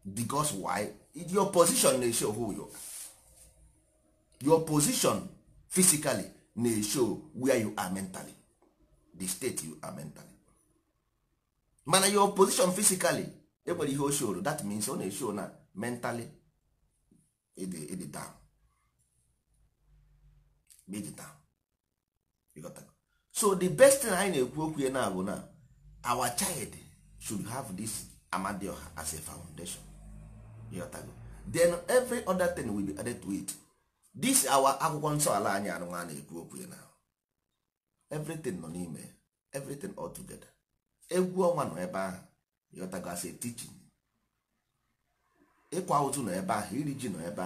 because why your position na-esho who you your position physically na show where you are mentally the state you are mentally mana your position physically enwere ihe show that means ọ na-eshow na mentally dey down ịdị down so the best thing anyị na-ekwu okwu ya na bụ na our child should have this amadioha as a foundation then every other thing will be added to it. this awa akwụkwọ nsọ ala anyị anụnwa na-ekwu okwu na everything nọ n'ime everything all together egwu ọnwa nọ ebe ahụ yọtagasị teaching ịkwa ụtụ nọ ebe ahụ iri ji nọ ebe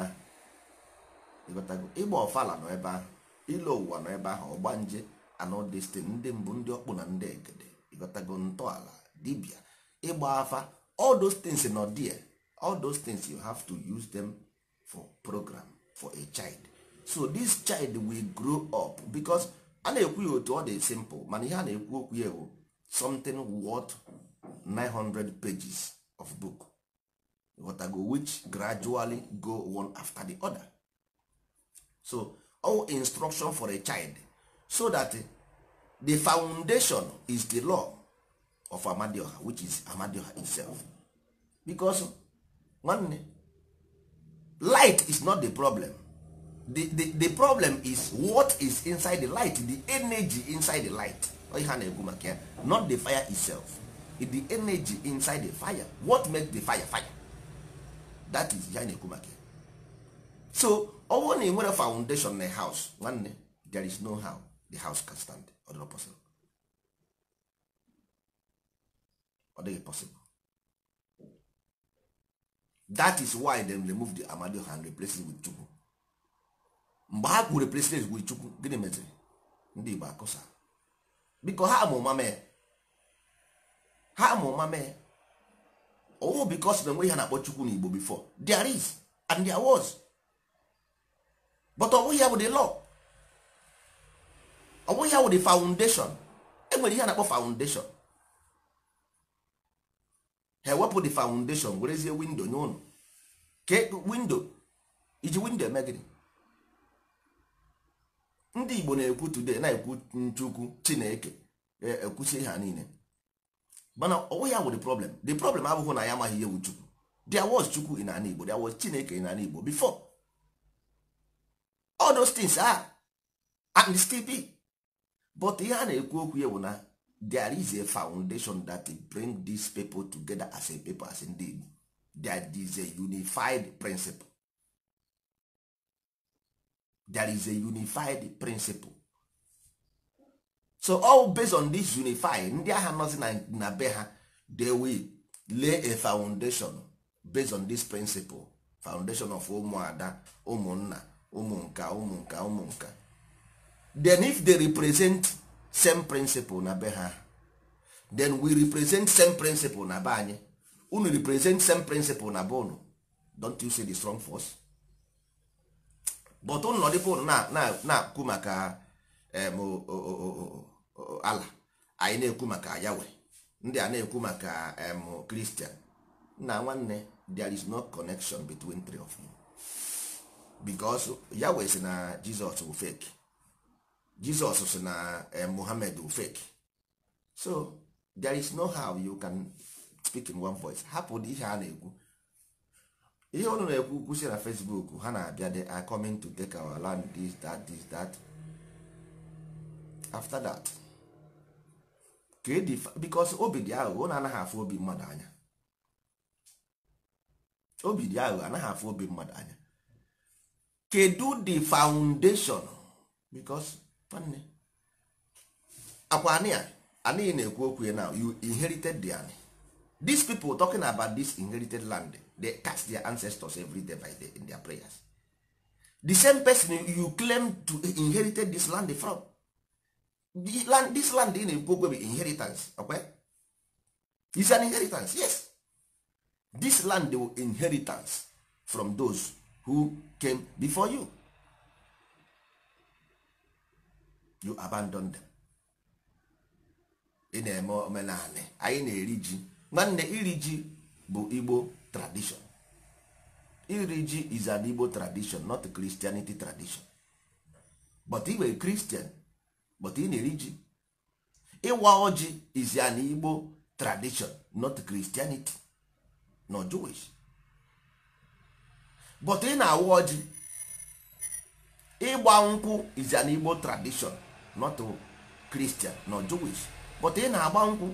ahụ ịgba ọfala nọ ebe ahụ ile ụwa nọ ebe ahụ ọgbanje anọdestin ndị mbụ ndị ọkpụ na ndị egede ịgọtago ntọala dibịa ịgba afa all those things nọ there all those things you have to use them for program for a child so this child will grow up because a na-ekwu ya otu ọ dị simple mana ihe a na-ekwu okwu ya bụ something worth 900 pages of book go which gradually go one after the other so all instruction for a child so that the foundation is the law of amadioha which is amadioha itself because nwanne light is not the problem the, the, the problem is what is inside the light the energy inside the light ihe a na maka ya not the fire itself the energy inside the fire what make the fire fire that is ya na maka ya so ọ na foundation na house nwanne there is no how the house can stand ọ dịghị possible that is why dem removed the Amadioha and replace it with Chukwu mgbe ha kwuru replace it with Chukwu gịnị meziri ndị Igbo akụsa biko ha ma ụma ha ma ụma mee owo bikos na enweghị ha na-akpọ Chukwu na Igbo before there is and there was but ọ bụghị ya bụ the law ọ bụghị ya bụ the foundation enwere ihe a na-akpọ foundation ha ewepụ the foundation werezie windo nye ụlọ ke windo iji windo eme eh, gịnị ndị igbo na-ekwu today na-ekwu nchukwu chineke eh, ekwusi ha niile mana ọwụ ya wụ the problem the problem abụghị na ya amaghị ihe wu chukwu there was chukwu in ana igbo there was chineke in ana igbo before all those things are and still be but ihe a na-ekwu okwu ya bụ na there is a foundation that bring these people together as a people as ndị Igbo there is a unified principle there is a unified principle so all based on this unified ndị agha nọzi na be ha they will lay a foundation based on this principle foundation of ụmụada ụmụnna ụmụnka ụmụnka ụmụnka then if they represent same principle na be ha then we represent same principle na be anyị unu represent same principle na be unu don't you see the strong force but unu nọdịbe unu na-ekwu maka ala anyị na-ekwu maka yawe ndị a na-ekwu maka kristian nna nwanne there is no connection between three of you because yawe si na jizọs bụ fake jizọs sị na eh, mohammed fake so there is no how you can speak in one voice hapụ ihe a na-ekwu ihe ọnụ na-ekwu kwụsị na facebook ha na-abịa they are coming to take our land this that this that after that e because obi dị aghụghọ na anaghị afụ obi mmadụ anya obi dị aghụghọ anaghị afụ obi mmadụ anya kedu the foundation because nwanne akwa anị a anị na-ekwu okwu ya now you inherited the anị these people talking about this inherited land they cast their ancestors every day by day in their prayers the same person you claim to inherited this land from the land, this land ị na-ekwu okwu bụ inheritance okay? is an inheritance yes this land will inheritance from those who came before you you abandon them ị na-eme omenanị anyị na-eri ji nwanne iri ji bụ igbo tradition iri ji is an igbo tradition not christianity tradition but ị were christian but ị na-eri ji ịwa ọjị is an igbo tradition not christianity nor jewish but ị na-awa ọjị ịgba nkwụ is an igbo tradition not Christian nọ Jewish but ị na-agba nkwụ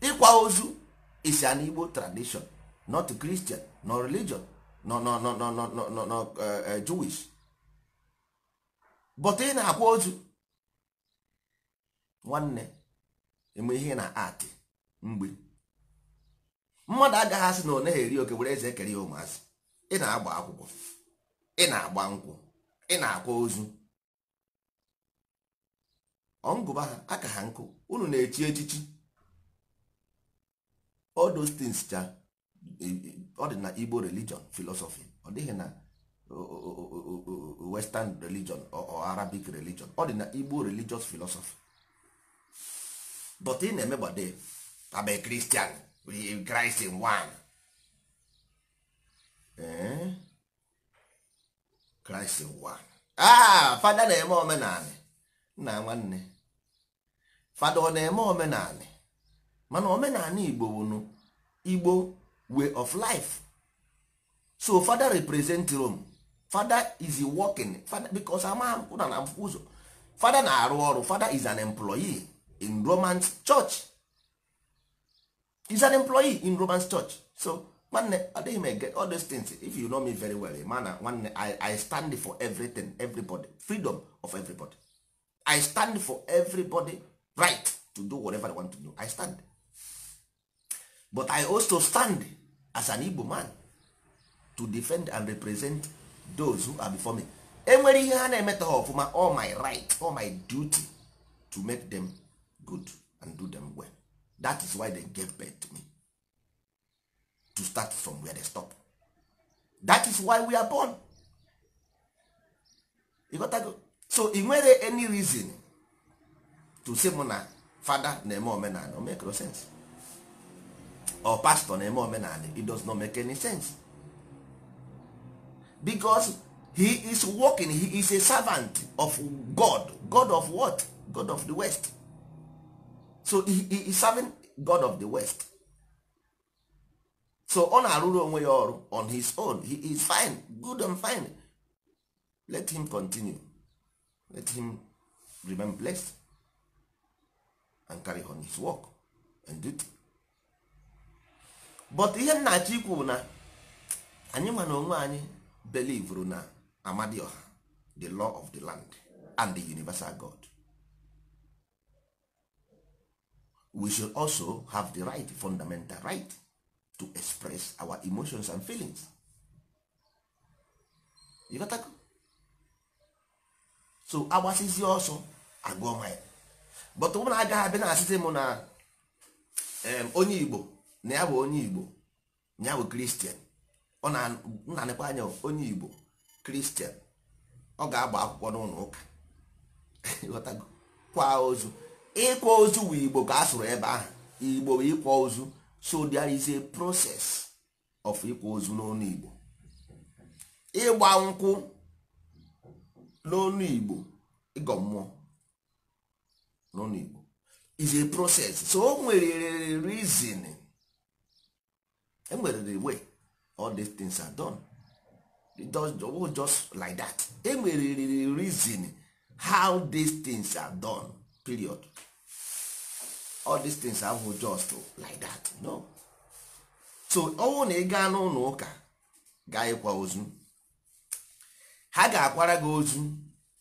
ịkwa ozu is an Igbo tradition not Christian nọ religion nọ nọ nọ nọ nọ nọ Jewish but ị na-akwa ozu nwanne eme ihe na atị mgbe mmadụ agaghị asị na ọ naghị eri oke were eze ekere ya ụmụazị ị na-agba akwụkwọ ị na-agba nkwụ ị na-akwa ozu ọngụba ha aka ha nkụ unu na-echi echichi all those things cha e, e, ọ dị na Igbo religion philosophy ọ dịghị na western religion or arabic religion ọ dị na Igbo religious philosophy but ị na-emegbade abe Christian Christ in kraịst ụwa ah fada na-eme omenanị nna nwanne fada ọ na-eme omenanị mana omenanị igbo bụ igbo way of life so fada represent rome fada is working fada because ama ụna na ụzọ fada na-arụ ọrụ fada is an employee in roman church is an employee in roman church so nwanne adịghị m ege all these things if you know me very well mana nwanne I, i stand for everything everybody freedom of everybody i stand for everybody right to do whatever i want to do i stand but i also stand as an igbo man to defend and represent those who are before me enwere ihe ha na-emeta ha all my right all my duty to make them good and do them well that is why they gave birth to me to start from where they stop that is why we are born you got to go. so e nwere any reason to say mụ na fada na-eme omenala o make no sense or pastor na-eme omenala it does not make any sense because he is working he is a servant of god god of what god of the west so he, he is serving god of the west so ọ na-arụrụ onwe ya ọrụ on his own he is fine good and fine let him continue let him remain blessed and carry on his work and duty but ihe nna achọ na anyị ma na onwe anyị belivru na amadioha the law of the land and the universal god we should also have the right fundamental right to express our emotions and feelings ịghọtago so agbasizi ọsọ agụọ ya but ụmụ na agaghị abịa na-asịzi m na onye igbo na ya bụ onye igbo na ya bụ kristian ọ na-anịkwa anya onye igbo kristian ọ ga-agba akwụkwọ n'ụlọ ụka ịghọtago kwa ozu ịkwa ozu bụ eh, igbo ka a sụrụ ebe ahụ igbo bụ ịkwa ozu so there is a process of ịkwa ozu n'onu igbo ịgba nkwụ n'onu igbo ịgọ mmụọ n'onu igbo is a process so o nwere reason enwere the way all these things are done it does just like that enwere reason how these things are done period all these things ahụ just like that no so ọnwụ na ị gaa n'ụlọ ụka gaa ozu ha ga-akwara gị ozu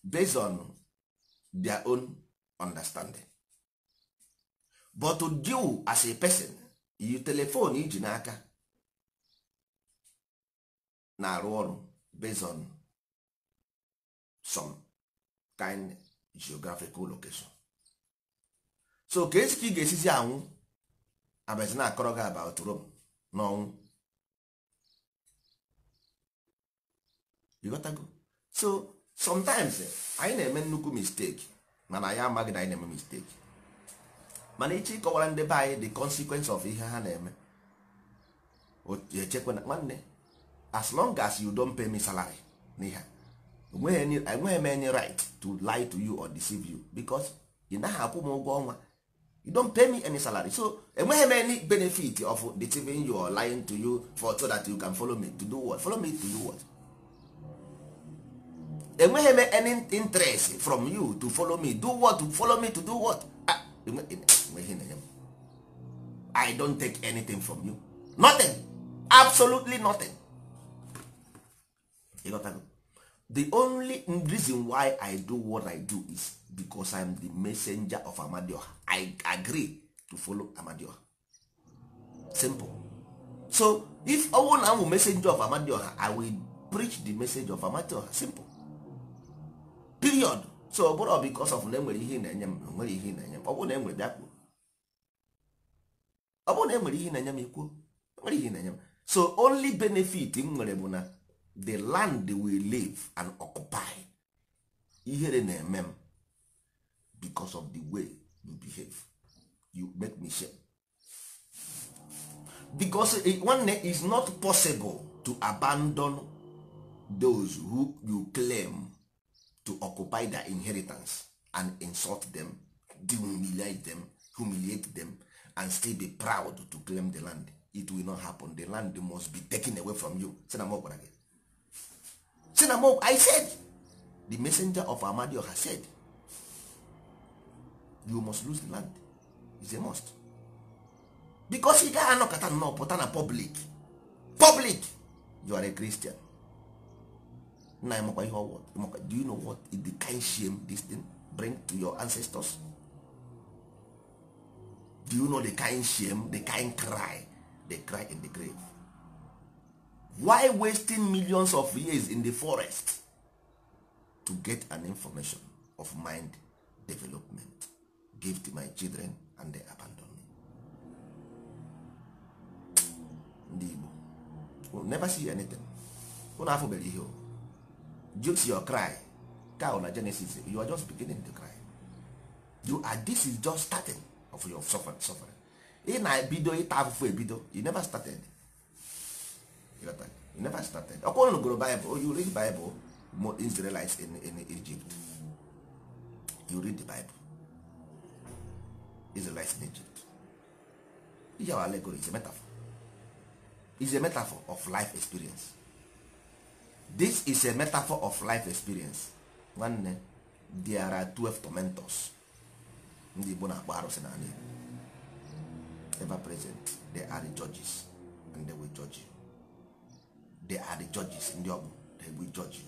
based on their own understanding but to deal as a person you telephone iji n'aka na-arụ ọrụ based on some kind geographical location so ka esi ka ị ga-esizi anwụ abazi na-akọrọ gị about Rome n'ọnwụ so sometimes anyị na-eme nnukwu mistake mana anyị amaghị na anyị na-eme mistake mana ịchị ịkọwara ndị be anyị the consequence of ihe ha na-eme echekwa na nwanne as long as you don't pay me salary n'ihe enweghị e m enye right to lie to you or deceive you because ị naghị akwụ m ụgwọ ọnwa you don't pay me any salary so enweghị m any benefit of deceiving you or lying to you for so that you can follow me to do what follow me to do what enweghị m any interest from you to follow me do what to follow me to do what ah i don't take anything from you nothing absolutely nothing you got the only reason why i do what i do is because i am the messenger of amadioha i agree to follow amadioha simple so if ọnwụ na amụ messenger of amadioha i will preach the message of amadioha simple period so ọ bụrụ because of na enwere ihe na-enye m na-enwere ihe na-enye m ọ bụrụ na enwere bịa kwuo ọ bụrụ na enwere ihe na-enye m ikwuo nwere ihe na-enye m so only benefit m nwere bụ na the land we live and occupy ihere na-eme m because of the way you behave you make me shame because nwanne is not possible to abandon those who you claim to occupy their inheritance and insult them humiliate them humiliate them and still be proud to claim the land it will not happen the land must be taken away from you si na gwara gị si na m i said the messenger of amadioha said you must lose the land is a must because ị gaghị anọkọta nnọọ pụta na public public you are a christian nna ya makwa ihe ọwụ do you know what is the kind shame this thing bring to your ancestors do you know the kind shame the kind cry they cry in the grave why wasting millions of years in the forest to get an information of mind development give to my children and they abandon me ndị Igbo will never see anything unu afụbere ihe jut your cry cow na Genesis you are just beginning to cry you are this is just starting of your suffering suffering ị na-ebido ịta afụfụ ebido you never started you never started ọ kwụrụ gụrụ Bible oh, you read Bible more Israelites in, in Egypt you read the Bible Israelites in Egypt is our allegory is a metaphor is a metaphor of life experience this is a metaphor of life experience nwanne there are 12 tormentors ndị Igbo na-akpọ arụsị na Igbo ever present they are the judges and they will judge you they are the judges ndị ọbụ they egbu judge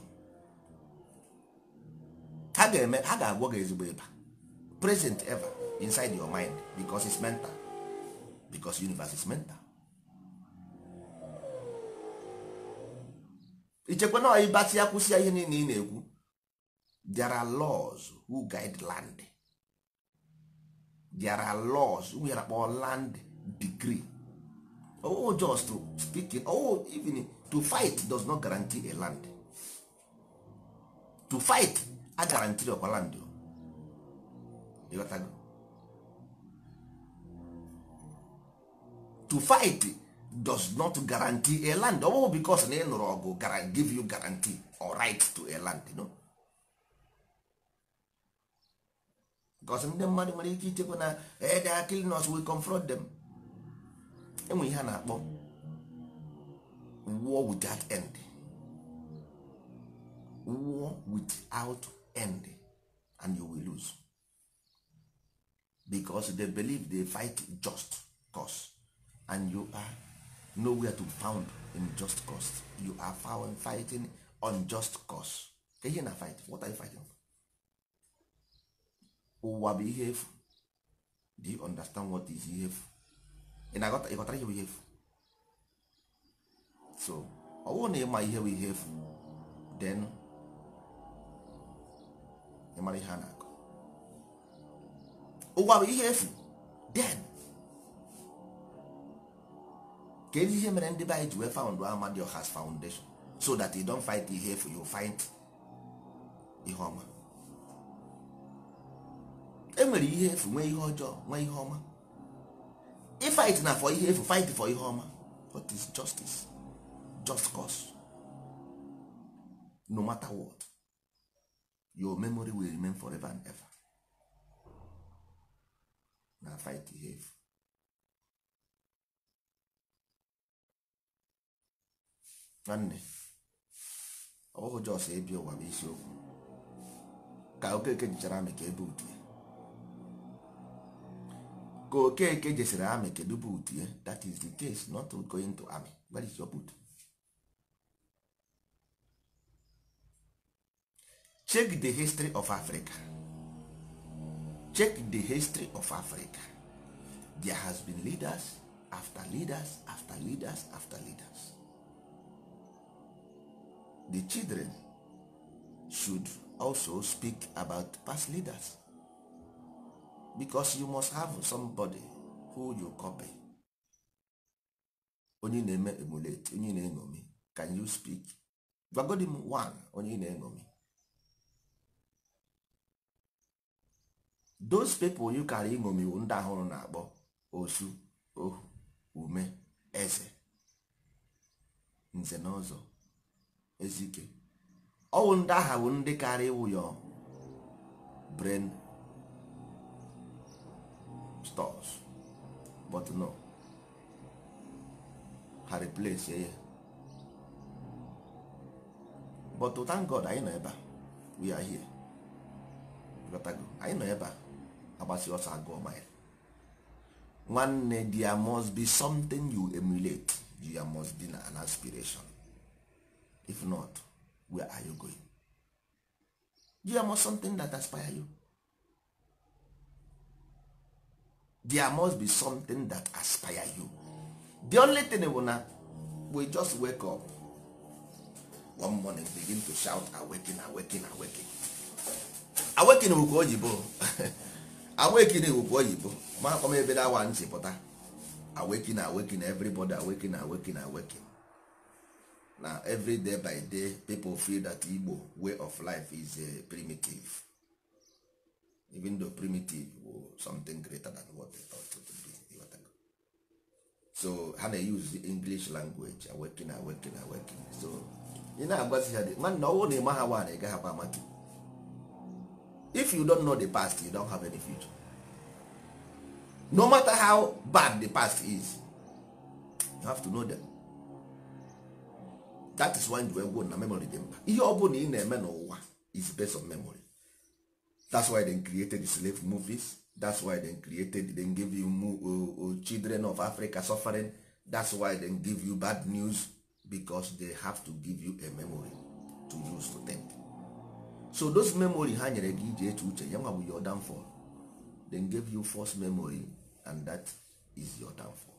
ha ga-eme ha ga-agwọ gị ezigbo ịba present ever inside your mind because it's mental because universe is mental ichekwa na ịbasị ya kwụsị ya ihe niile ị na-ekwu there are laws who guide land there are laws who yara kpọ land degree oh just speaking oh even to fight does not guarantee a land to fight a guarantee ọkwa land ịghọtago oh. to fight does not guarantee a land ọ oh, bụghị because na ị nụrụ ọgụ give you guarantee or right to a land no? because ndị mmadụ nwere ike ichekwa na ede eh, akilinos will confront them enwe ihe a na-akpọ war without end war without end and you will lose because they believe they fight just cause and you are nowhere to found in just cause you are found fighting on just cause ihe na fight what are you fighting ụwa bụ ihe efu do you understand what is ihe efu ị na-aghọtara ihe bụ ihe efu so ọ bụrụ na ịma ihe bụ ihe efu then ịmara ihe a na-akọ ụwa bụ ihe efu then kedu ihe mere ndị be anyị ji wee found Amadioha's foundation so that you don't fight ihe efu you find ihe ọma e nwere ihe efu nwee ihe ọjọọ nwee ihe ọma ịfight na for ihe efu fight for ihe ọma what is justice just cause no matter what your memory will remain forever and ever na fight ihe efu nwanne ọ bụghị jos ebi ụwa bụ isiokwu ka okeke jichara amị ka ebe utie ka okeke jesiri amị kedu bụ utie that is the case not going to army where is your boot check the history of africa check the history of africa there has been leaders after leaders after leaders after leaders the children should also speak about past leaders because you must have somebody who you copy onye na-eme emulate onye na enomi can you speak gwagodi one onye na enomi those people you kara iṅomiwu ndị ahụrụ na-akpọ osu ohu ume eze nze na ọzọ ezike ọwụ ndị agha bụ ndị kara ịwụ ya brain stores but no ha replace ya but thank God anyị nọ ebe a we are here anyị nọ ebe a agbasi ọsọ agụọ mile nwanne there must be something you emulate there must be an aspiration if not where are you going there must something that aspire you there must be something that aspire you the only thing bụ na we just wake up one morning begin to shout awaken awaken awaken awaken bụ ka oyibo awekine bụ oyibo ma akpọm ebe na awa ntị pụta awaken awaken everybody awaken awaken awaken na every by day people feel that Igbo way of life is uh, primitive even though primitive or something greater than what they thought it would be so ha na-use the English language awaken awaken awaken so ị na-agwazi ha nwanne ọnwụ na ịma ha nwaanyị gaghị akwa amaki if you don't know the past you don't have any future no matter how bad the past is you have to know them that is why you go na memory dị mkpa ihe ọ bụla ị na-eme n'ụwa is based on memory that's why they created the slave movies that's why they created they give you uh, uh, children of africa suffering that's why they give you bad news because they have to give you a memory to use to think so those memory ha nyere gị iji eche uche ya nwa bụ your downfall give you false memory and that is your downfall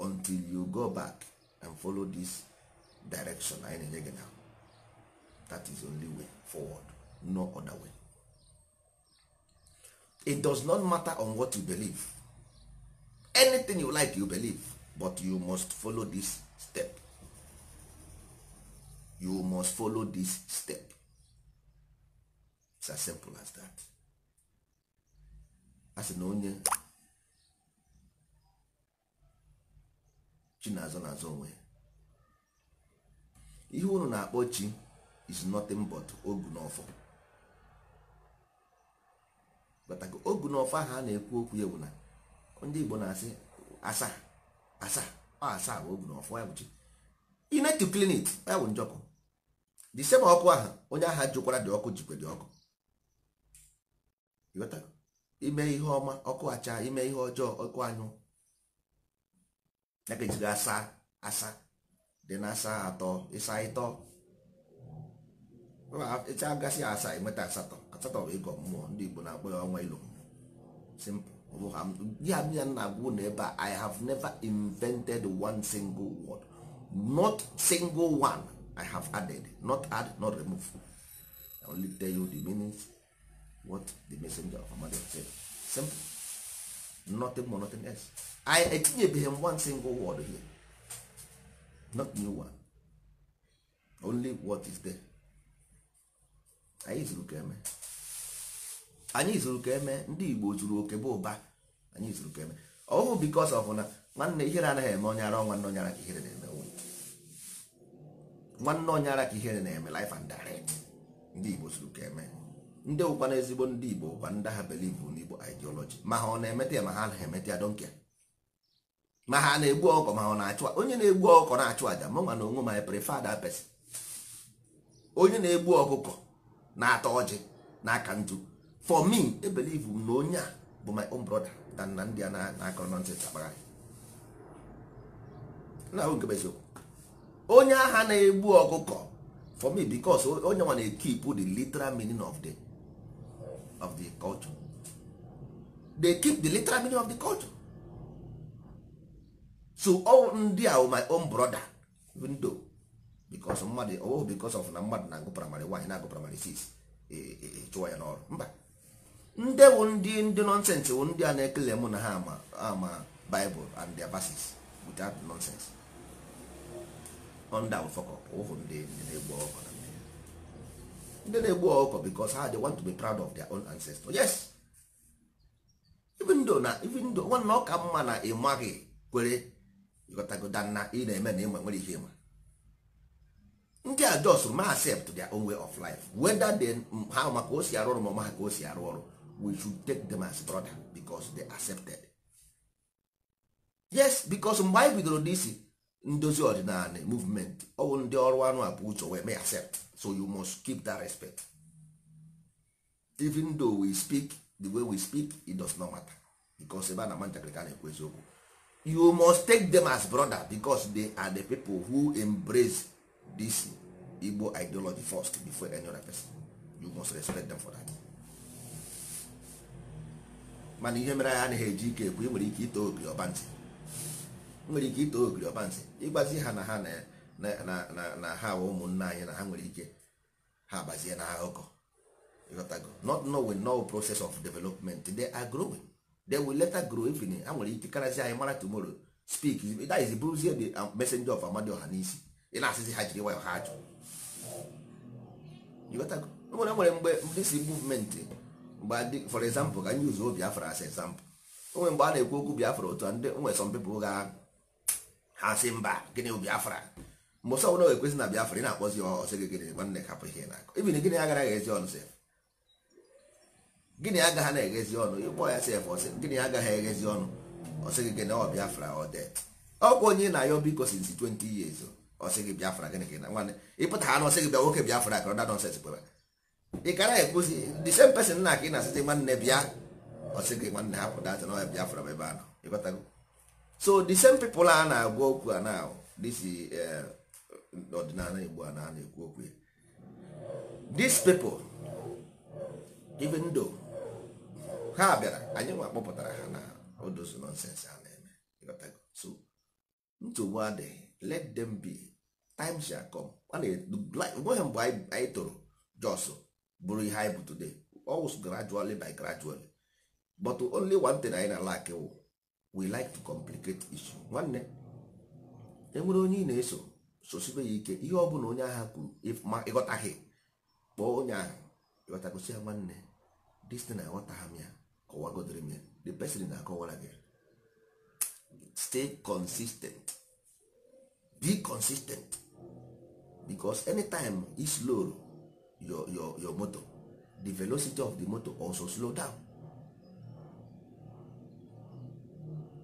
until you go back and follow this direction anyị na-enye gị na that is only way forward no other way it does not matter on what you believe anything you like you believe but you must follow this step you must follow this step It's simple as that. a e? E na onye chi na-azọ n'azọ onwe ihe unu na-akpọ chi is nothing but ogu n'ọfọ bataka ogu n'ọfọ ahụ a na-ekwu okwu ya bụ na ndị Igbo na-asị asaa asaa ọ asaa bụ ogu n'ọfọ ya bụ chi United need ya bụ njọkọ the same ọkụ ahụ onye agha jụkwara dị ọkụ jikwe dị ọkụ ime ihe ọma ọkụ acha ime ihe ọjọọ ọkụ anyụ ya ka ejiri asa asa dị na asa atọ ịsa ịtọ ịcha gasị asa enweta asatọ asatọ bụ ịgọ mmụọ ndị Igbo na-akpọ ya ọnwa ilo ya ya na-agwụ na ebe a I have never invented one single word not single one I have added not add not removed I only tell you the meaning what the messenger of Muhammad said simple nothing more nothing else I etinyebeghị m one single word here not new one only what is there anyị zuru ka eme anyị zuru ka eme ndị Igbo zuru oke bụ ụba anyị zuru ka eme ọ bụ because of na nwanne ihere anaghị eme onye ara nwanne onye ara ka ihere na-eme nwanne onye ara ka ihere na-eme life and direct ndị Igbo zuru ka eme ndị ụkwana ezigbo ndị igbo ụkwa ndị ha belivu n'igbo ideology ma ha ọ na-emete ya ma ha anaghị emete ya donke ma ha na-egbu ọkọ ma ọ na-achụ onye na-egbu ọkọ na-achụ aja ma na onwe ma prefer that person onye na-egbu ọkụkọ na atọ ọjị na aka nju for me ebelivu m na onye a bụ my own brother than na ndị a na-akọrọ nọnsens agbagharị na-ahụ nke eziokwu onye agha na-egbu ọkụkọ for me because onye nwa na-ekipụ the literal meaning of the of the culture they keep the literal meaning of the culture so all ndị a my own brother even though because mmadụ oh because of na mmadụ na-agụ primary one na-agụ primary six eh, eh, eh, chụwa ya n'ọrụ mba ndị wụ ndị ndị nonsense wụ ndị a na-ekele mụ na ha ama ama bible and their verses without nonsense on down fọkọ ụhụ ndị na-egbu ọkụ na ndị na-egbu ọkụkọ because ha ah, dey want to be proud of their own ancestors yes even though na even though nwanne ọka mma na ịmaghị kwere ịghọtagoda na ị na-eme na ịma nwere ihe ịma ndị a jos ma accept their own way of life whether they ha maka o si arụ ọrụ ma ọma ka o si arụ ọrụ we should take them as brother because they accepted yes because mgbe anyị bidoro dc ndozi ọdịnala movement ọwụ ndị ọrụ anụ abụ uche wee may accept so you must keep that respect even though we speak the way we speak it does not matter because ebe a na ama na-ekwu eziokwu you must take them as brother because they are the people who embrace this Igbo ideology first before any other person you must respect them for that mana ihe mere anyị anaghị eji ike ekwu ị nwere ike ito obi ọba nwere ike ito ogiri ọbansi ịgbazi ha na ha na ha ụmụnna anyị na ha nwere ike ha agbazie na akụkọ ịghọtago not knowing no process of development they are growing they will later grow even ha nwere ike karazi anyị mara tomoro speak that is bụrụzie the um, messenger of ọha n'isi ị na-asịzi ha jiri nwayọ ha ajụ ịghọtago nwere nwere mgbe this movement mgbe for example ka anyị obi afọrọ as example onwe mgbe a na-ekwu okwu bi afọrọ otu a ndị nwere some people ga ha si mba gịnị biafra mụsa ọbụla ga-ekwesị na biafra ị na-akpọzi ọsị gị gịnị nwanne hapụ ihe na-akọ ibin gịnị agara ezi ọnụ gịnị agaghị na-eghezi ọnụ ịkpọ ya sef gịnị agaghị eghezi ọnụ ọsị gị gịnị ọ biafra ọ det onye na-ayọ biko 20 years ọsị gị biafra gịnị na ọsị ị kara na ị na bịa ọsị gị nwanne hapụ data na ọya biafra ebe so the same people a na-agwa okwu a na this eh, ọdịnala igbo a na-ekwu okwu these people even though ha bịara anyị nwa kpọpụtara ha na odozu nonsense a na-eme so nsogbu adịghị let them be time shall come nweghị mgbe anyị toro jos bụrụ ihe anyị bụ today always gradually by gradually but only one thing anyị na lak wụ we like to complicate issue nwanne enwere onye ị na-eso sosibe ya ike ihe ọ bụla onye agha kwuru ma ịghọtaghị kpọọ onye agha ịghọtagosi ya nwanne distin na aghọtagha m ya kọwagodere m ya the person na-akọwara gị stay consistent be consistent because anytime i slow your, your, your motor the velocity of the motor also slow down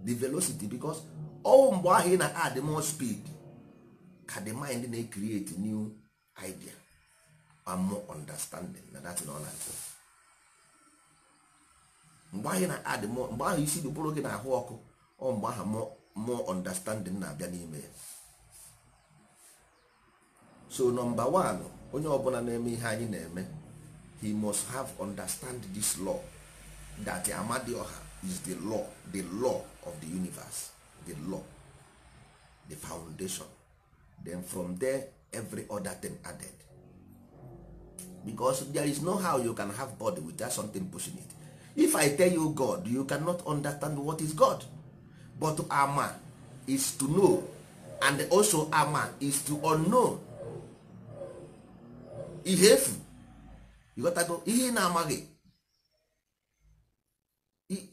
the velocity because ọ mgbe ahụ ị na-add more speed ka the mind na-ecreate new idea and more understanding na that na ọ na-achọ mgbe ahụ na-add more mgbe ahụ isi dụpụrụ gị na-ahụ ọkụ ọ mgbe ahụ more understanding na-abịa n'ime ya so nọmba 1 onye ọbụla na-eme ihe anyị na-eme he must have understand this law that Amadioha is the law the law of the universe the law the foundation then from there every other thing added because there is no how you can have body without something pushing it if i tell you god you cannot understand what is god but ama is to know and also ama is to unknown ihefu you got gotta go ihe ị na-amaghị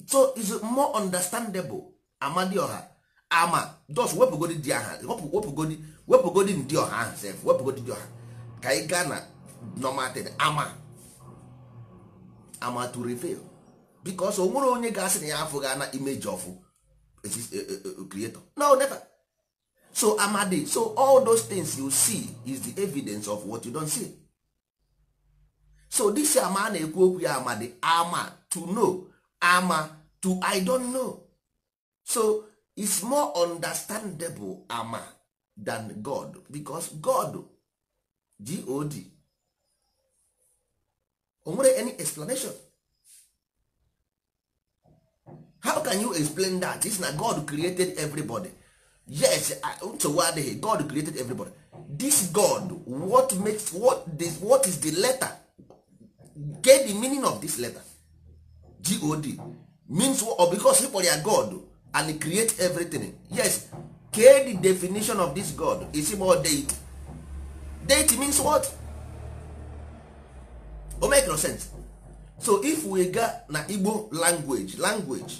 so is more understandable ọha ama dos wepụgodi di aha wepụgodi wepụgodi ndị ọha ahụ sef wepụgodi di ọha ka ị gaa na nomatin ama ama to reveal bikos o nwere onye ga-asị na ya afụghị ana of ọfụ eh, eh, eh, creator no never so amadi so all those things you see is the evidence of what you don see so this ama a na-ekwu okwu ya amadi ama to know ama to i don't know so it's more understandable ama than god because god god onwere any explanation how can you explain that this na god created everybody yes nsogbu adịghị god created everybody this god what makes what, this, what is the letter get the meaning of this letter god means or oh, because he kpọrọ ya god and create everything yes kee the definition of this god is about deity deity means what o make no sense so if we ga na igbo language language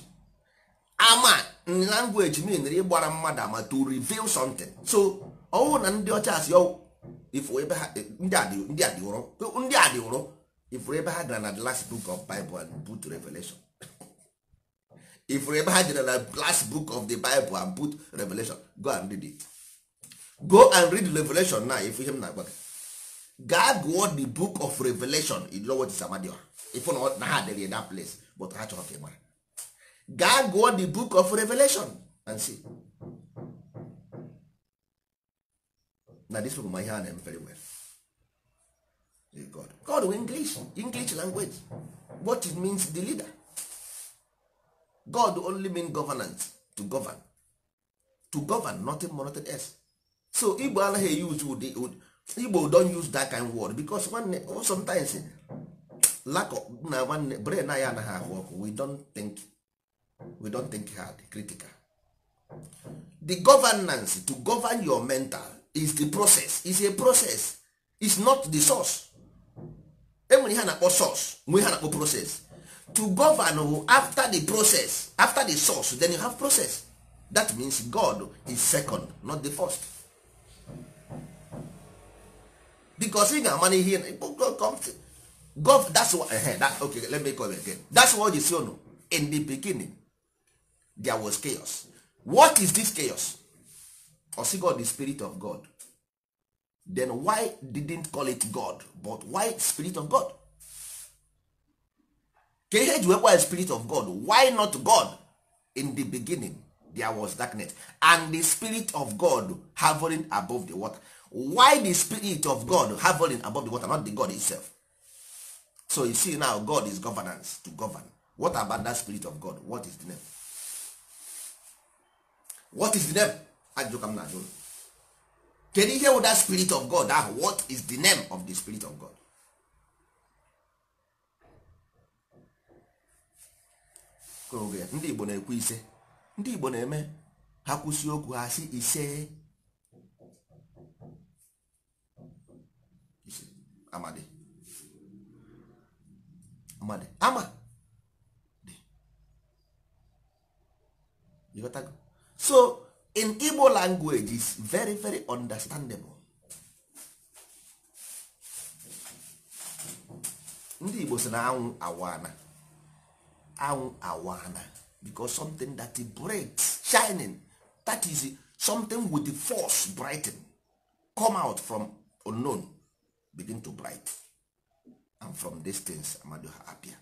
ama language mean ịgbara mmadụ ama to reveal something so ọwụ na ndị ọcha si ọwụ ifo ebe ha ndị a dị ụrọ ndị ụrọ ifuru ebe ha gara na the last book of bible and put revelation ifuru ebe ha jere na the last book of the bible and put revelation go and read it go and read revelation now if ihe m na-agwa gị gaa gụọ the book of revelation in tisamadioha ifu na ha dere that place but ha chọrọ ka ị mara gaa gụọ the book of revelation and see na this book ma ihe a na very well God. God we English English language what it means the leader God only mean governance to govern to govern nothing more nothing else so Igbo anaghị use ụdị Igbo don use that kind word because nwanne sometimes lack of na nwanne brain anyị anaghị ahụ ọkụ we don't think we don't think hard critical the governance to govern your mental is the process is a process is not the source enwere ihe a na-akpọ source nwee ihe na-akpọ process to govern after the process after the source then you have process that means God is second not the first because ị ga God na ihe gov that's what, uh, that, okay let me call it again that's what you see no in the beginning there was chaos what is this chaos? Or the spirit of God then why didn't call it god but why spirit of god ka ihe ji wekwa spirit of god why not god in the beginning there was darkness and the spirit of god hovering above the water why the spirit of god hovering above the water not the god itself so you see now god is governance to govern what about that spirit of god what is the name what is the name ajụka na ajụ kedu ihe wụ that spirit of god ahụ what is the name of the spirit of god ndị igbo na-ekwu ise ndị igbo na-eme ha kwụsị okwu ha si ise amadi amadi ama so in igbo language is very very understandable ndị igbo si na anwụ awana anwụ awana because something that breaks shining that is something with the force brighten come out from unknown begin to bright and from distance amado ha appear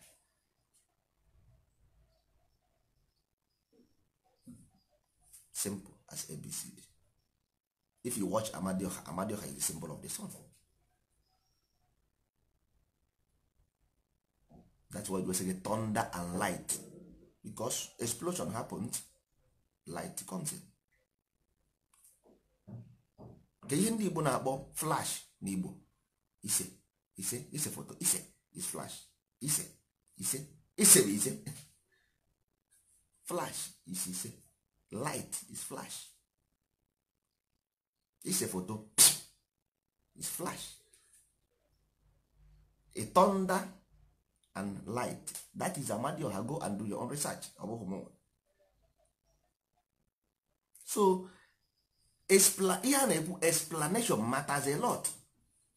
simple as abcd if you watch amadioha amadioha is the symbol of the sun that's why we say thunder and light because explosion happens light comes in ka ihe ndị igbo na-akpọ flash na igbo ise ise ise foto ise is flash ise ise ise bụ ise flash ise ise light is flash ise foto is flash a thunder and light that is amadioha go and do your own research ọ bụghị so ihe a na-ekwu explanation matters a lot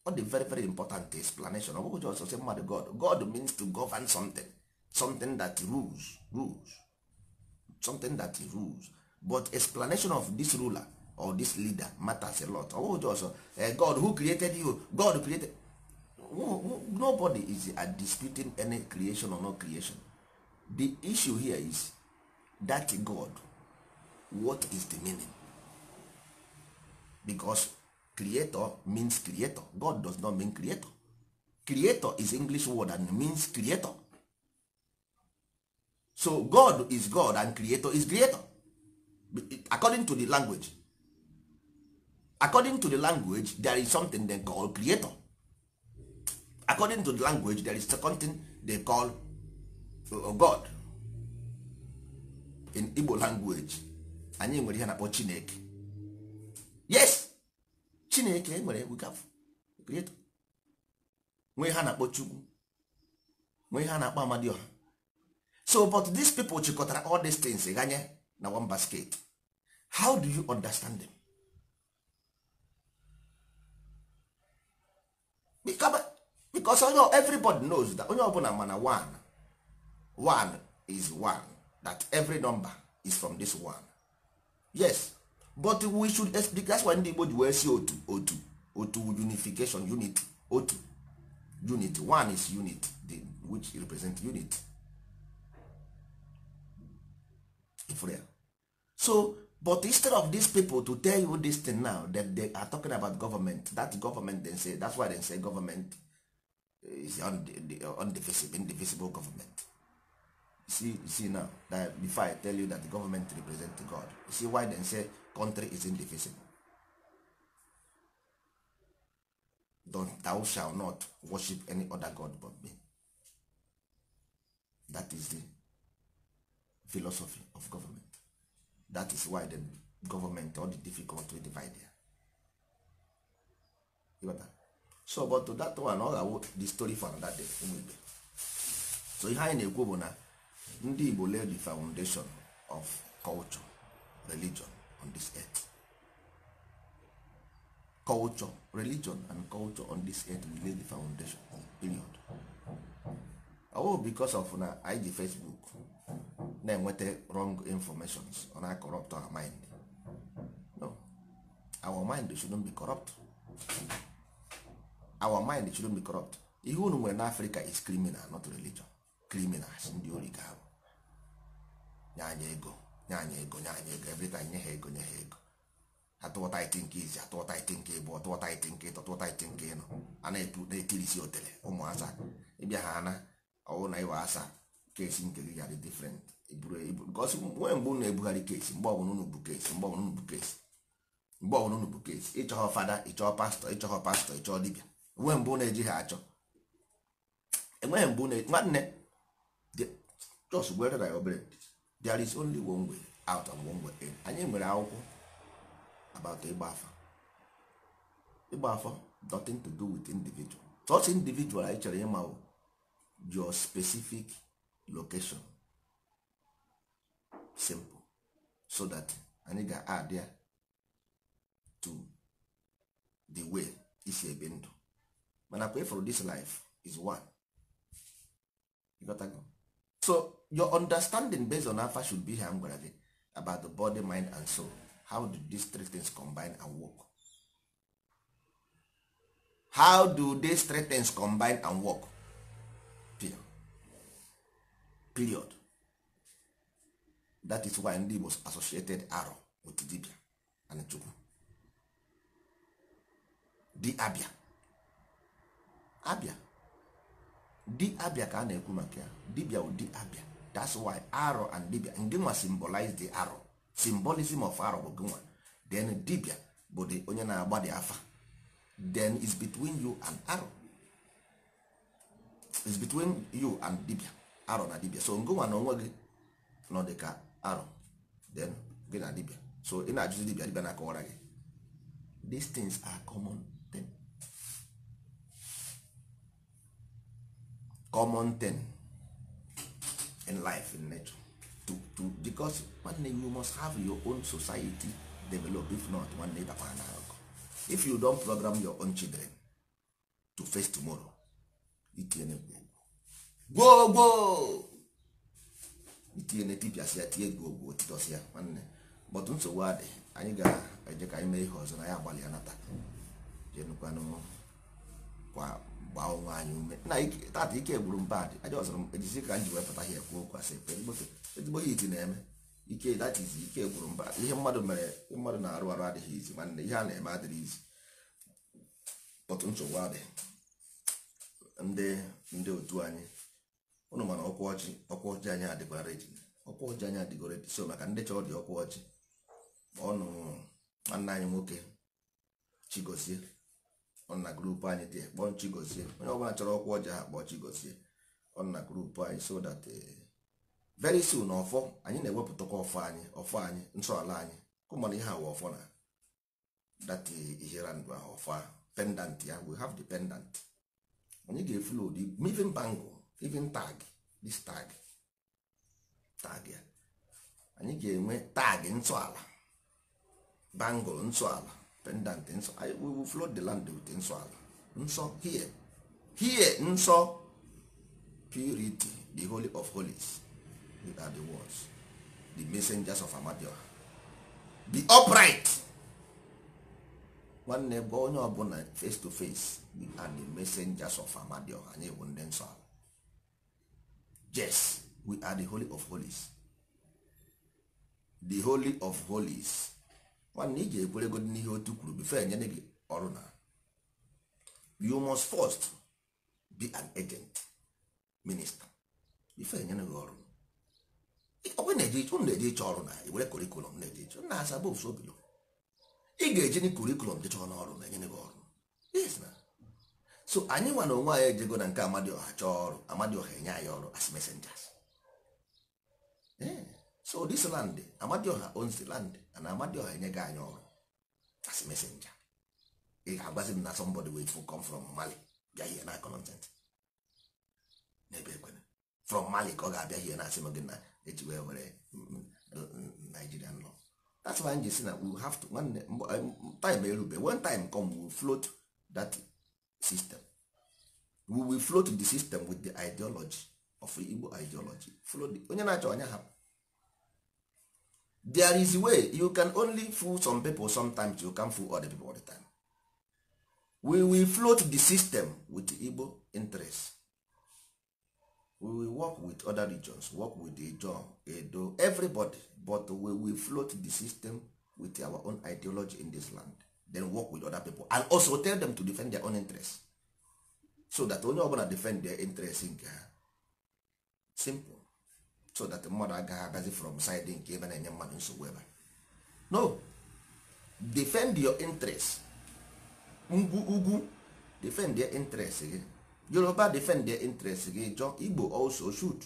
ọ dị very very important explanation ọ bụghị just say mmadụ god god means to govern something something that rules rules something that rules but explanation of this ruler or this leader matters a lot ọwụ oh, jọsọ eh, god who created you god created nobody is disputing any creation or no creation the issue here is that god what is the meaning because creator means creator god does not mean creator creator is english word and means creator so god is god and creator is creator according to the language according to the language there is something they call creator according to the language there is something they call uh, god in igbo language anyị nwere ihe na-akpọ chineke yes chineke nwere creator nwee ha na-akpọ chukwu nwee ha na-akpọ amadioha so but these people chịkọtara all these things ganye na one basket how do you understand them? because everybody knows that onye ọbụla mana one one is one that every number is from this one yes but we should explain that's why ndị Igbo ji wee si otu otu otu unification unity otu unity one is unit which represent unity for so but instead of these people to tell you this thing now that they are talking about government that government they say that's why they say government is undivisible, indivisible government see see now that before i tell you that the government represent god you see why they say country is indivisible don thou shall not worship any other god but me that is the philosophy of government that is why the government all the difficult to divide there. so but to that one ọ ga-awụ the story for another day ụmụ so ihe anyị na-ekwu bụ na ndị Igbo lay the foundation of culture religion on this earth culture religion and culture on this earth we lay the foundation of period ọ oh, bụ because of na ig Facebook na-enweta wrong informations ọ na-corrupt our mind no our mind shouldn't be corrupt our mind shouldn't be corrupt ihe unu nwere n'africa is criminal not religion criminals ndị ori ka ahụ nye anya ego nye anya ego nye anya ego every time nye ha ego nye ha ego atụọta iti nke izi atụọta iti nke ịbụ ọtụọta iti nke ịtọ tụọta iti a na-etirisi otele ụmụasa ịbịa ha na ọwụ na ịwa asa kesi nke gị ya dị E, nwee mgbe unu ebugharị kesi mgbe ọbụla unu bụ kesi mgbe ọbụla unu bụ kesi mgbe ọbụla unu bụ kesi ịchọghọ fada ịchọọ pastọ ịchọghọ pastọ ịchọọ dibịa enweghị mgbe unu ejighị achọ enweghị mgbe unu e, nwanne jos gwere na ya obere there is only one way out of one way in anyị nwere akwụkwọ about ịgba afa ịgba afa nothing to do with individual chọọchị individual anyị chọrọ ịma your specific location simple so that anyị ga-add ya to the way isi ebi ndụ mana pay for this life is one you got so your understanding based on afa should be here m gwara gị about the body mind and soul how do these three things combine and work how do these three things combine and work period that is why ndị Igbo associated arọ with dibia and chukwu di abịa abịa di abịa ka a na-ekwu maka ya dibia di abịa that's why arọ and dibia ndị nwa symbolize the arọ symbolism of arọ bụ gịnwa then dibia bụ the onye na-agba di afa then is between you and arọ is between you and dibia arọ na dibia so ngụnwa na onwe gị nọ dị ka arụ then gị na dibia so ị na-ajụzi dibia dibia na-akọwara gị these things are common ten common ten in life in nature to, to, because nwanne you must have your own society develop if not nwanne ịdakwa na akụ if you don program your own children to face tomorrow itinye gwoo gwoo itinye na etipịasị ya tinye gị ogwu otitọsị ya nwanne bọtụ nsogbu adị anyị ga-eje ka anyị mee ihe ọzọ na ya agbalị ya nata jenukwanụ gbaa ọnwa anyị ume na tata ike gburu mba dị aja ọzọrọ m ejizi ka m ji wepụta ihe ekwu okwu asị ezigbo hit na-eme ike data izi ike gburu mba ihe mmadụ mere mmadụ na-arụ arụ adịghị izi nwanne ihe a na-eme adịghị izi bọtụ nsogbu adị ndị ndị otu anyị ụnụ mana ọkwa ọchị ọkwa ọchị anyị adịgwa redi ọkwa ọchị anyị adịgwa redi so maka ndị chọọ dị ọkwa ọchị ọnụ nwanne anyị nwoke chigozie ọ na grupu anyị dị kpọọ chigozie onye ọbụla chọrọ ọkwa ọchị ha kpọọ chigozie ọ na grupu anyị so that eh, very soon ọfọ anyị na-ewepụtakwa ọfọ anyị ọfọ anyị nsọala anyị kụmana ihe awa ọfọ na dat eh, ihere ndụ ahụ ọfọ pendant ya we have the pendant anyị ga-efulu ụdị mivin bangụ. even tag this tag tag ya anyị ga-enwe tag nsọala bangle nsọala pendant nsọ we will flood the land with nsọala nsọ here here nsọ purity the holy of holies without the words the messengers of amadio the upright nwanne bụ onye ọbụla face to face are the messengers of amadio anyị bụ ndị nsọala yes we are the holy of holies the holy of holies nwanne iji ekwere ekwerego n'ihe otu kwuru bifo enyere gị ọrụ na you must first be an agent minister bife enyere gị ọrụ ọbụ unu na-eje ịchọ ọrụ na iwere kurikulum na-eje ịchọ na asa bụ ị ga-eji kurikulum jechọ n'ọrụ na enyere gị ọrụ yes so anyị nwa onwe anyị ejego na nke amadịọha chọọ ọrụ amadịọha enye anyị ọrụ as messengers eh, so this land amadịọha owns land and amadịọha enye gị anyị ọrụ as messenger ị ga-agbazi m na somebody wey come from mali bịa hie na content n'ebe ekwere from mali ka ọ ga-abịa hie na asị m gị na eji wee were nigerian law that's why anyị ji si na we have to nwanne time erube when time come we float that system we will float the system with the ideology of Igbo ideology onye na-achọ onye hapụ there is way you can only fool some people sometimes you can fool other people all the time we will float the system with Igbo interest we will work with other regions work with Ijaw, Edo everybody but we will float the system with our own ideology in this land then work with other people and also tell them to defend their own interest so that onye ọbụla defend their interest nke ha simple so that mmadụ agaghị abịazi from side nke ebe na-enye mmadụ nsogbu ebe no defend your interest ngwu ugwu defend their interest gị yoruba defend their interest gị jọ igbo also shoot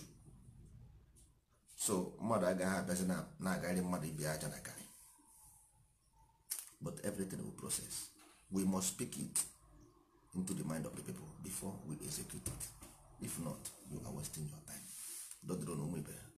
so mmadụ agaghị abịazi na-agarị mmadụ ibi aja na ka but everything will process we must speak it into the mind of the people before we execute it if not you are wasting your time dodron onwe ibe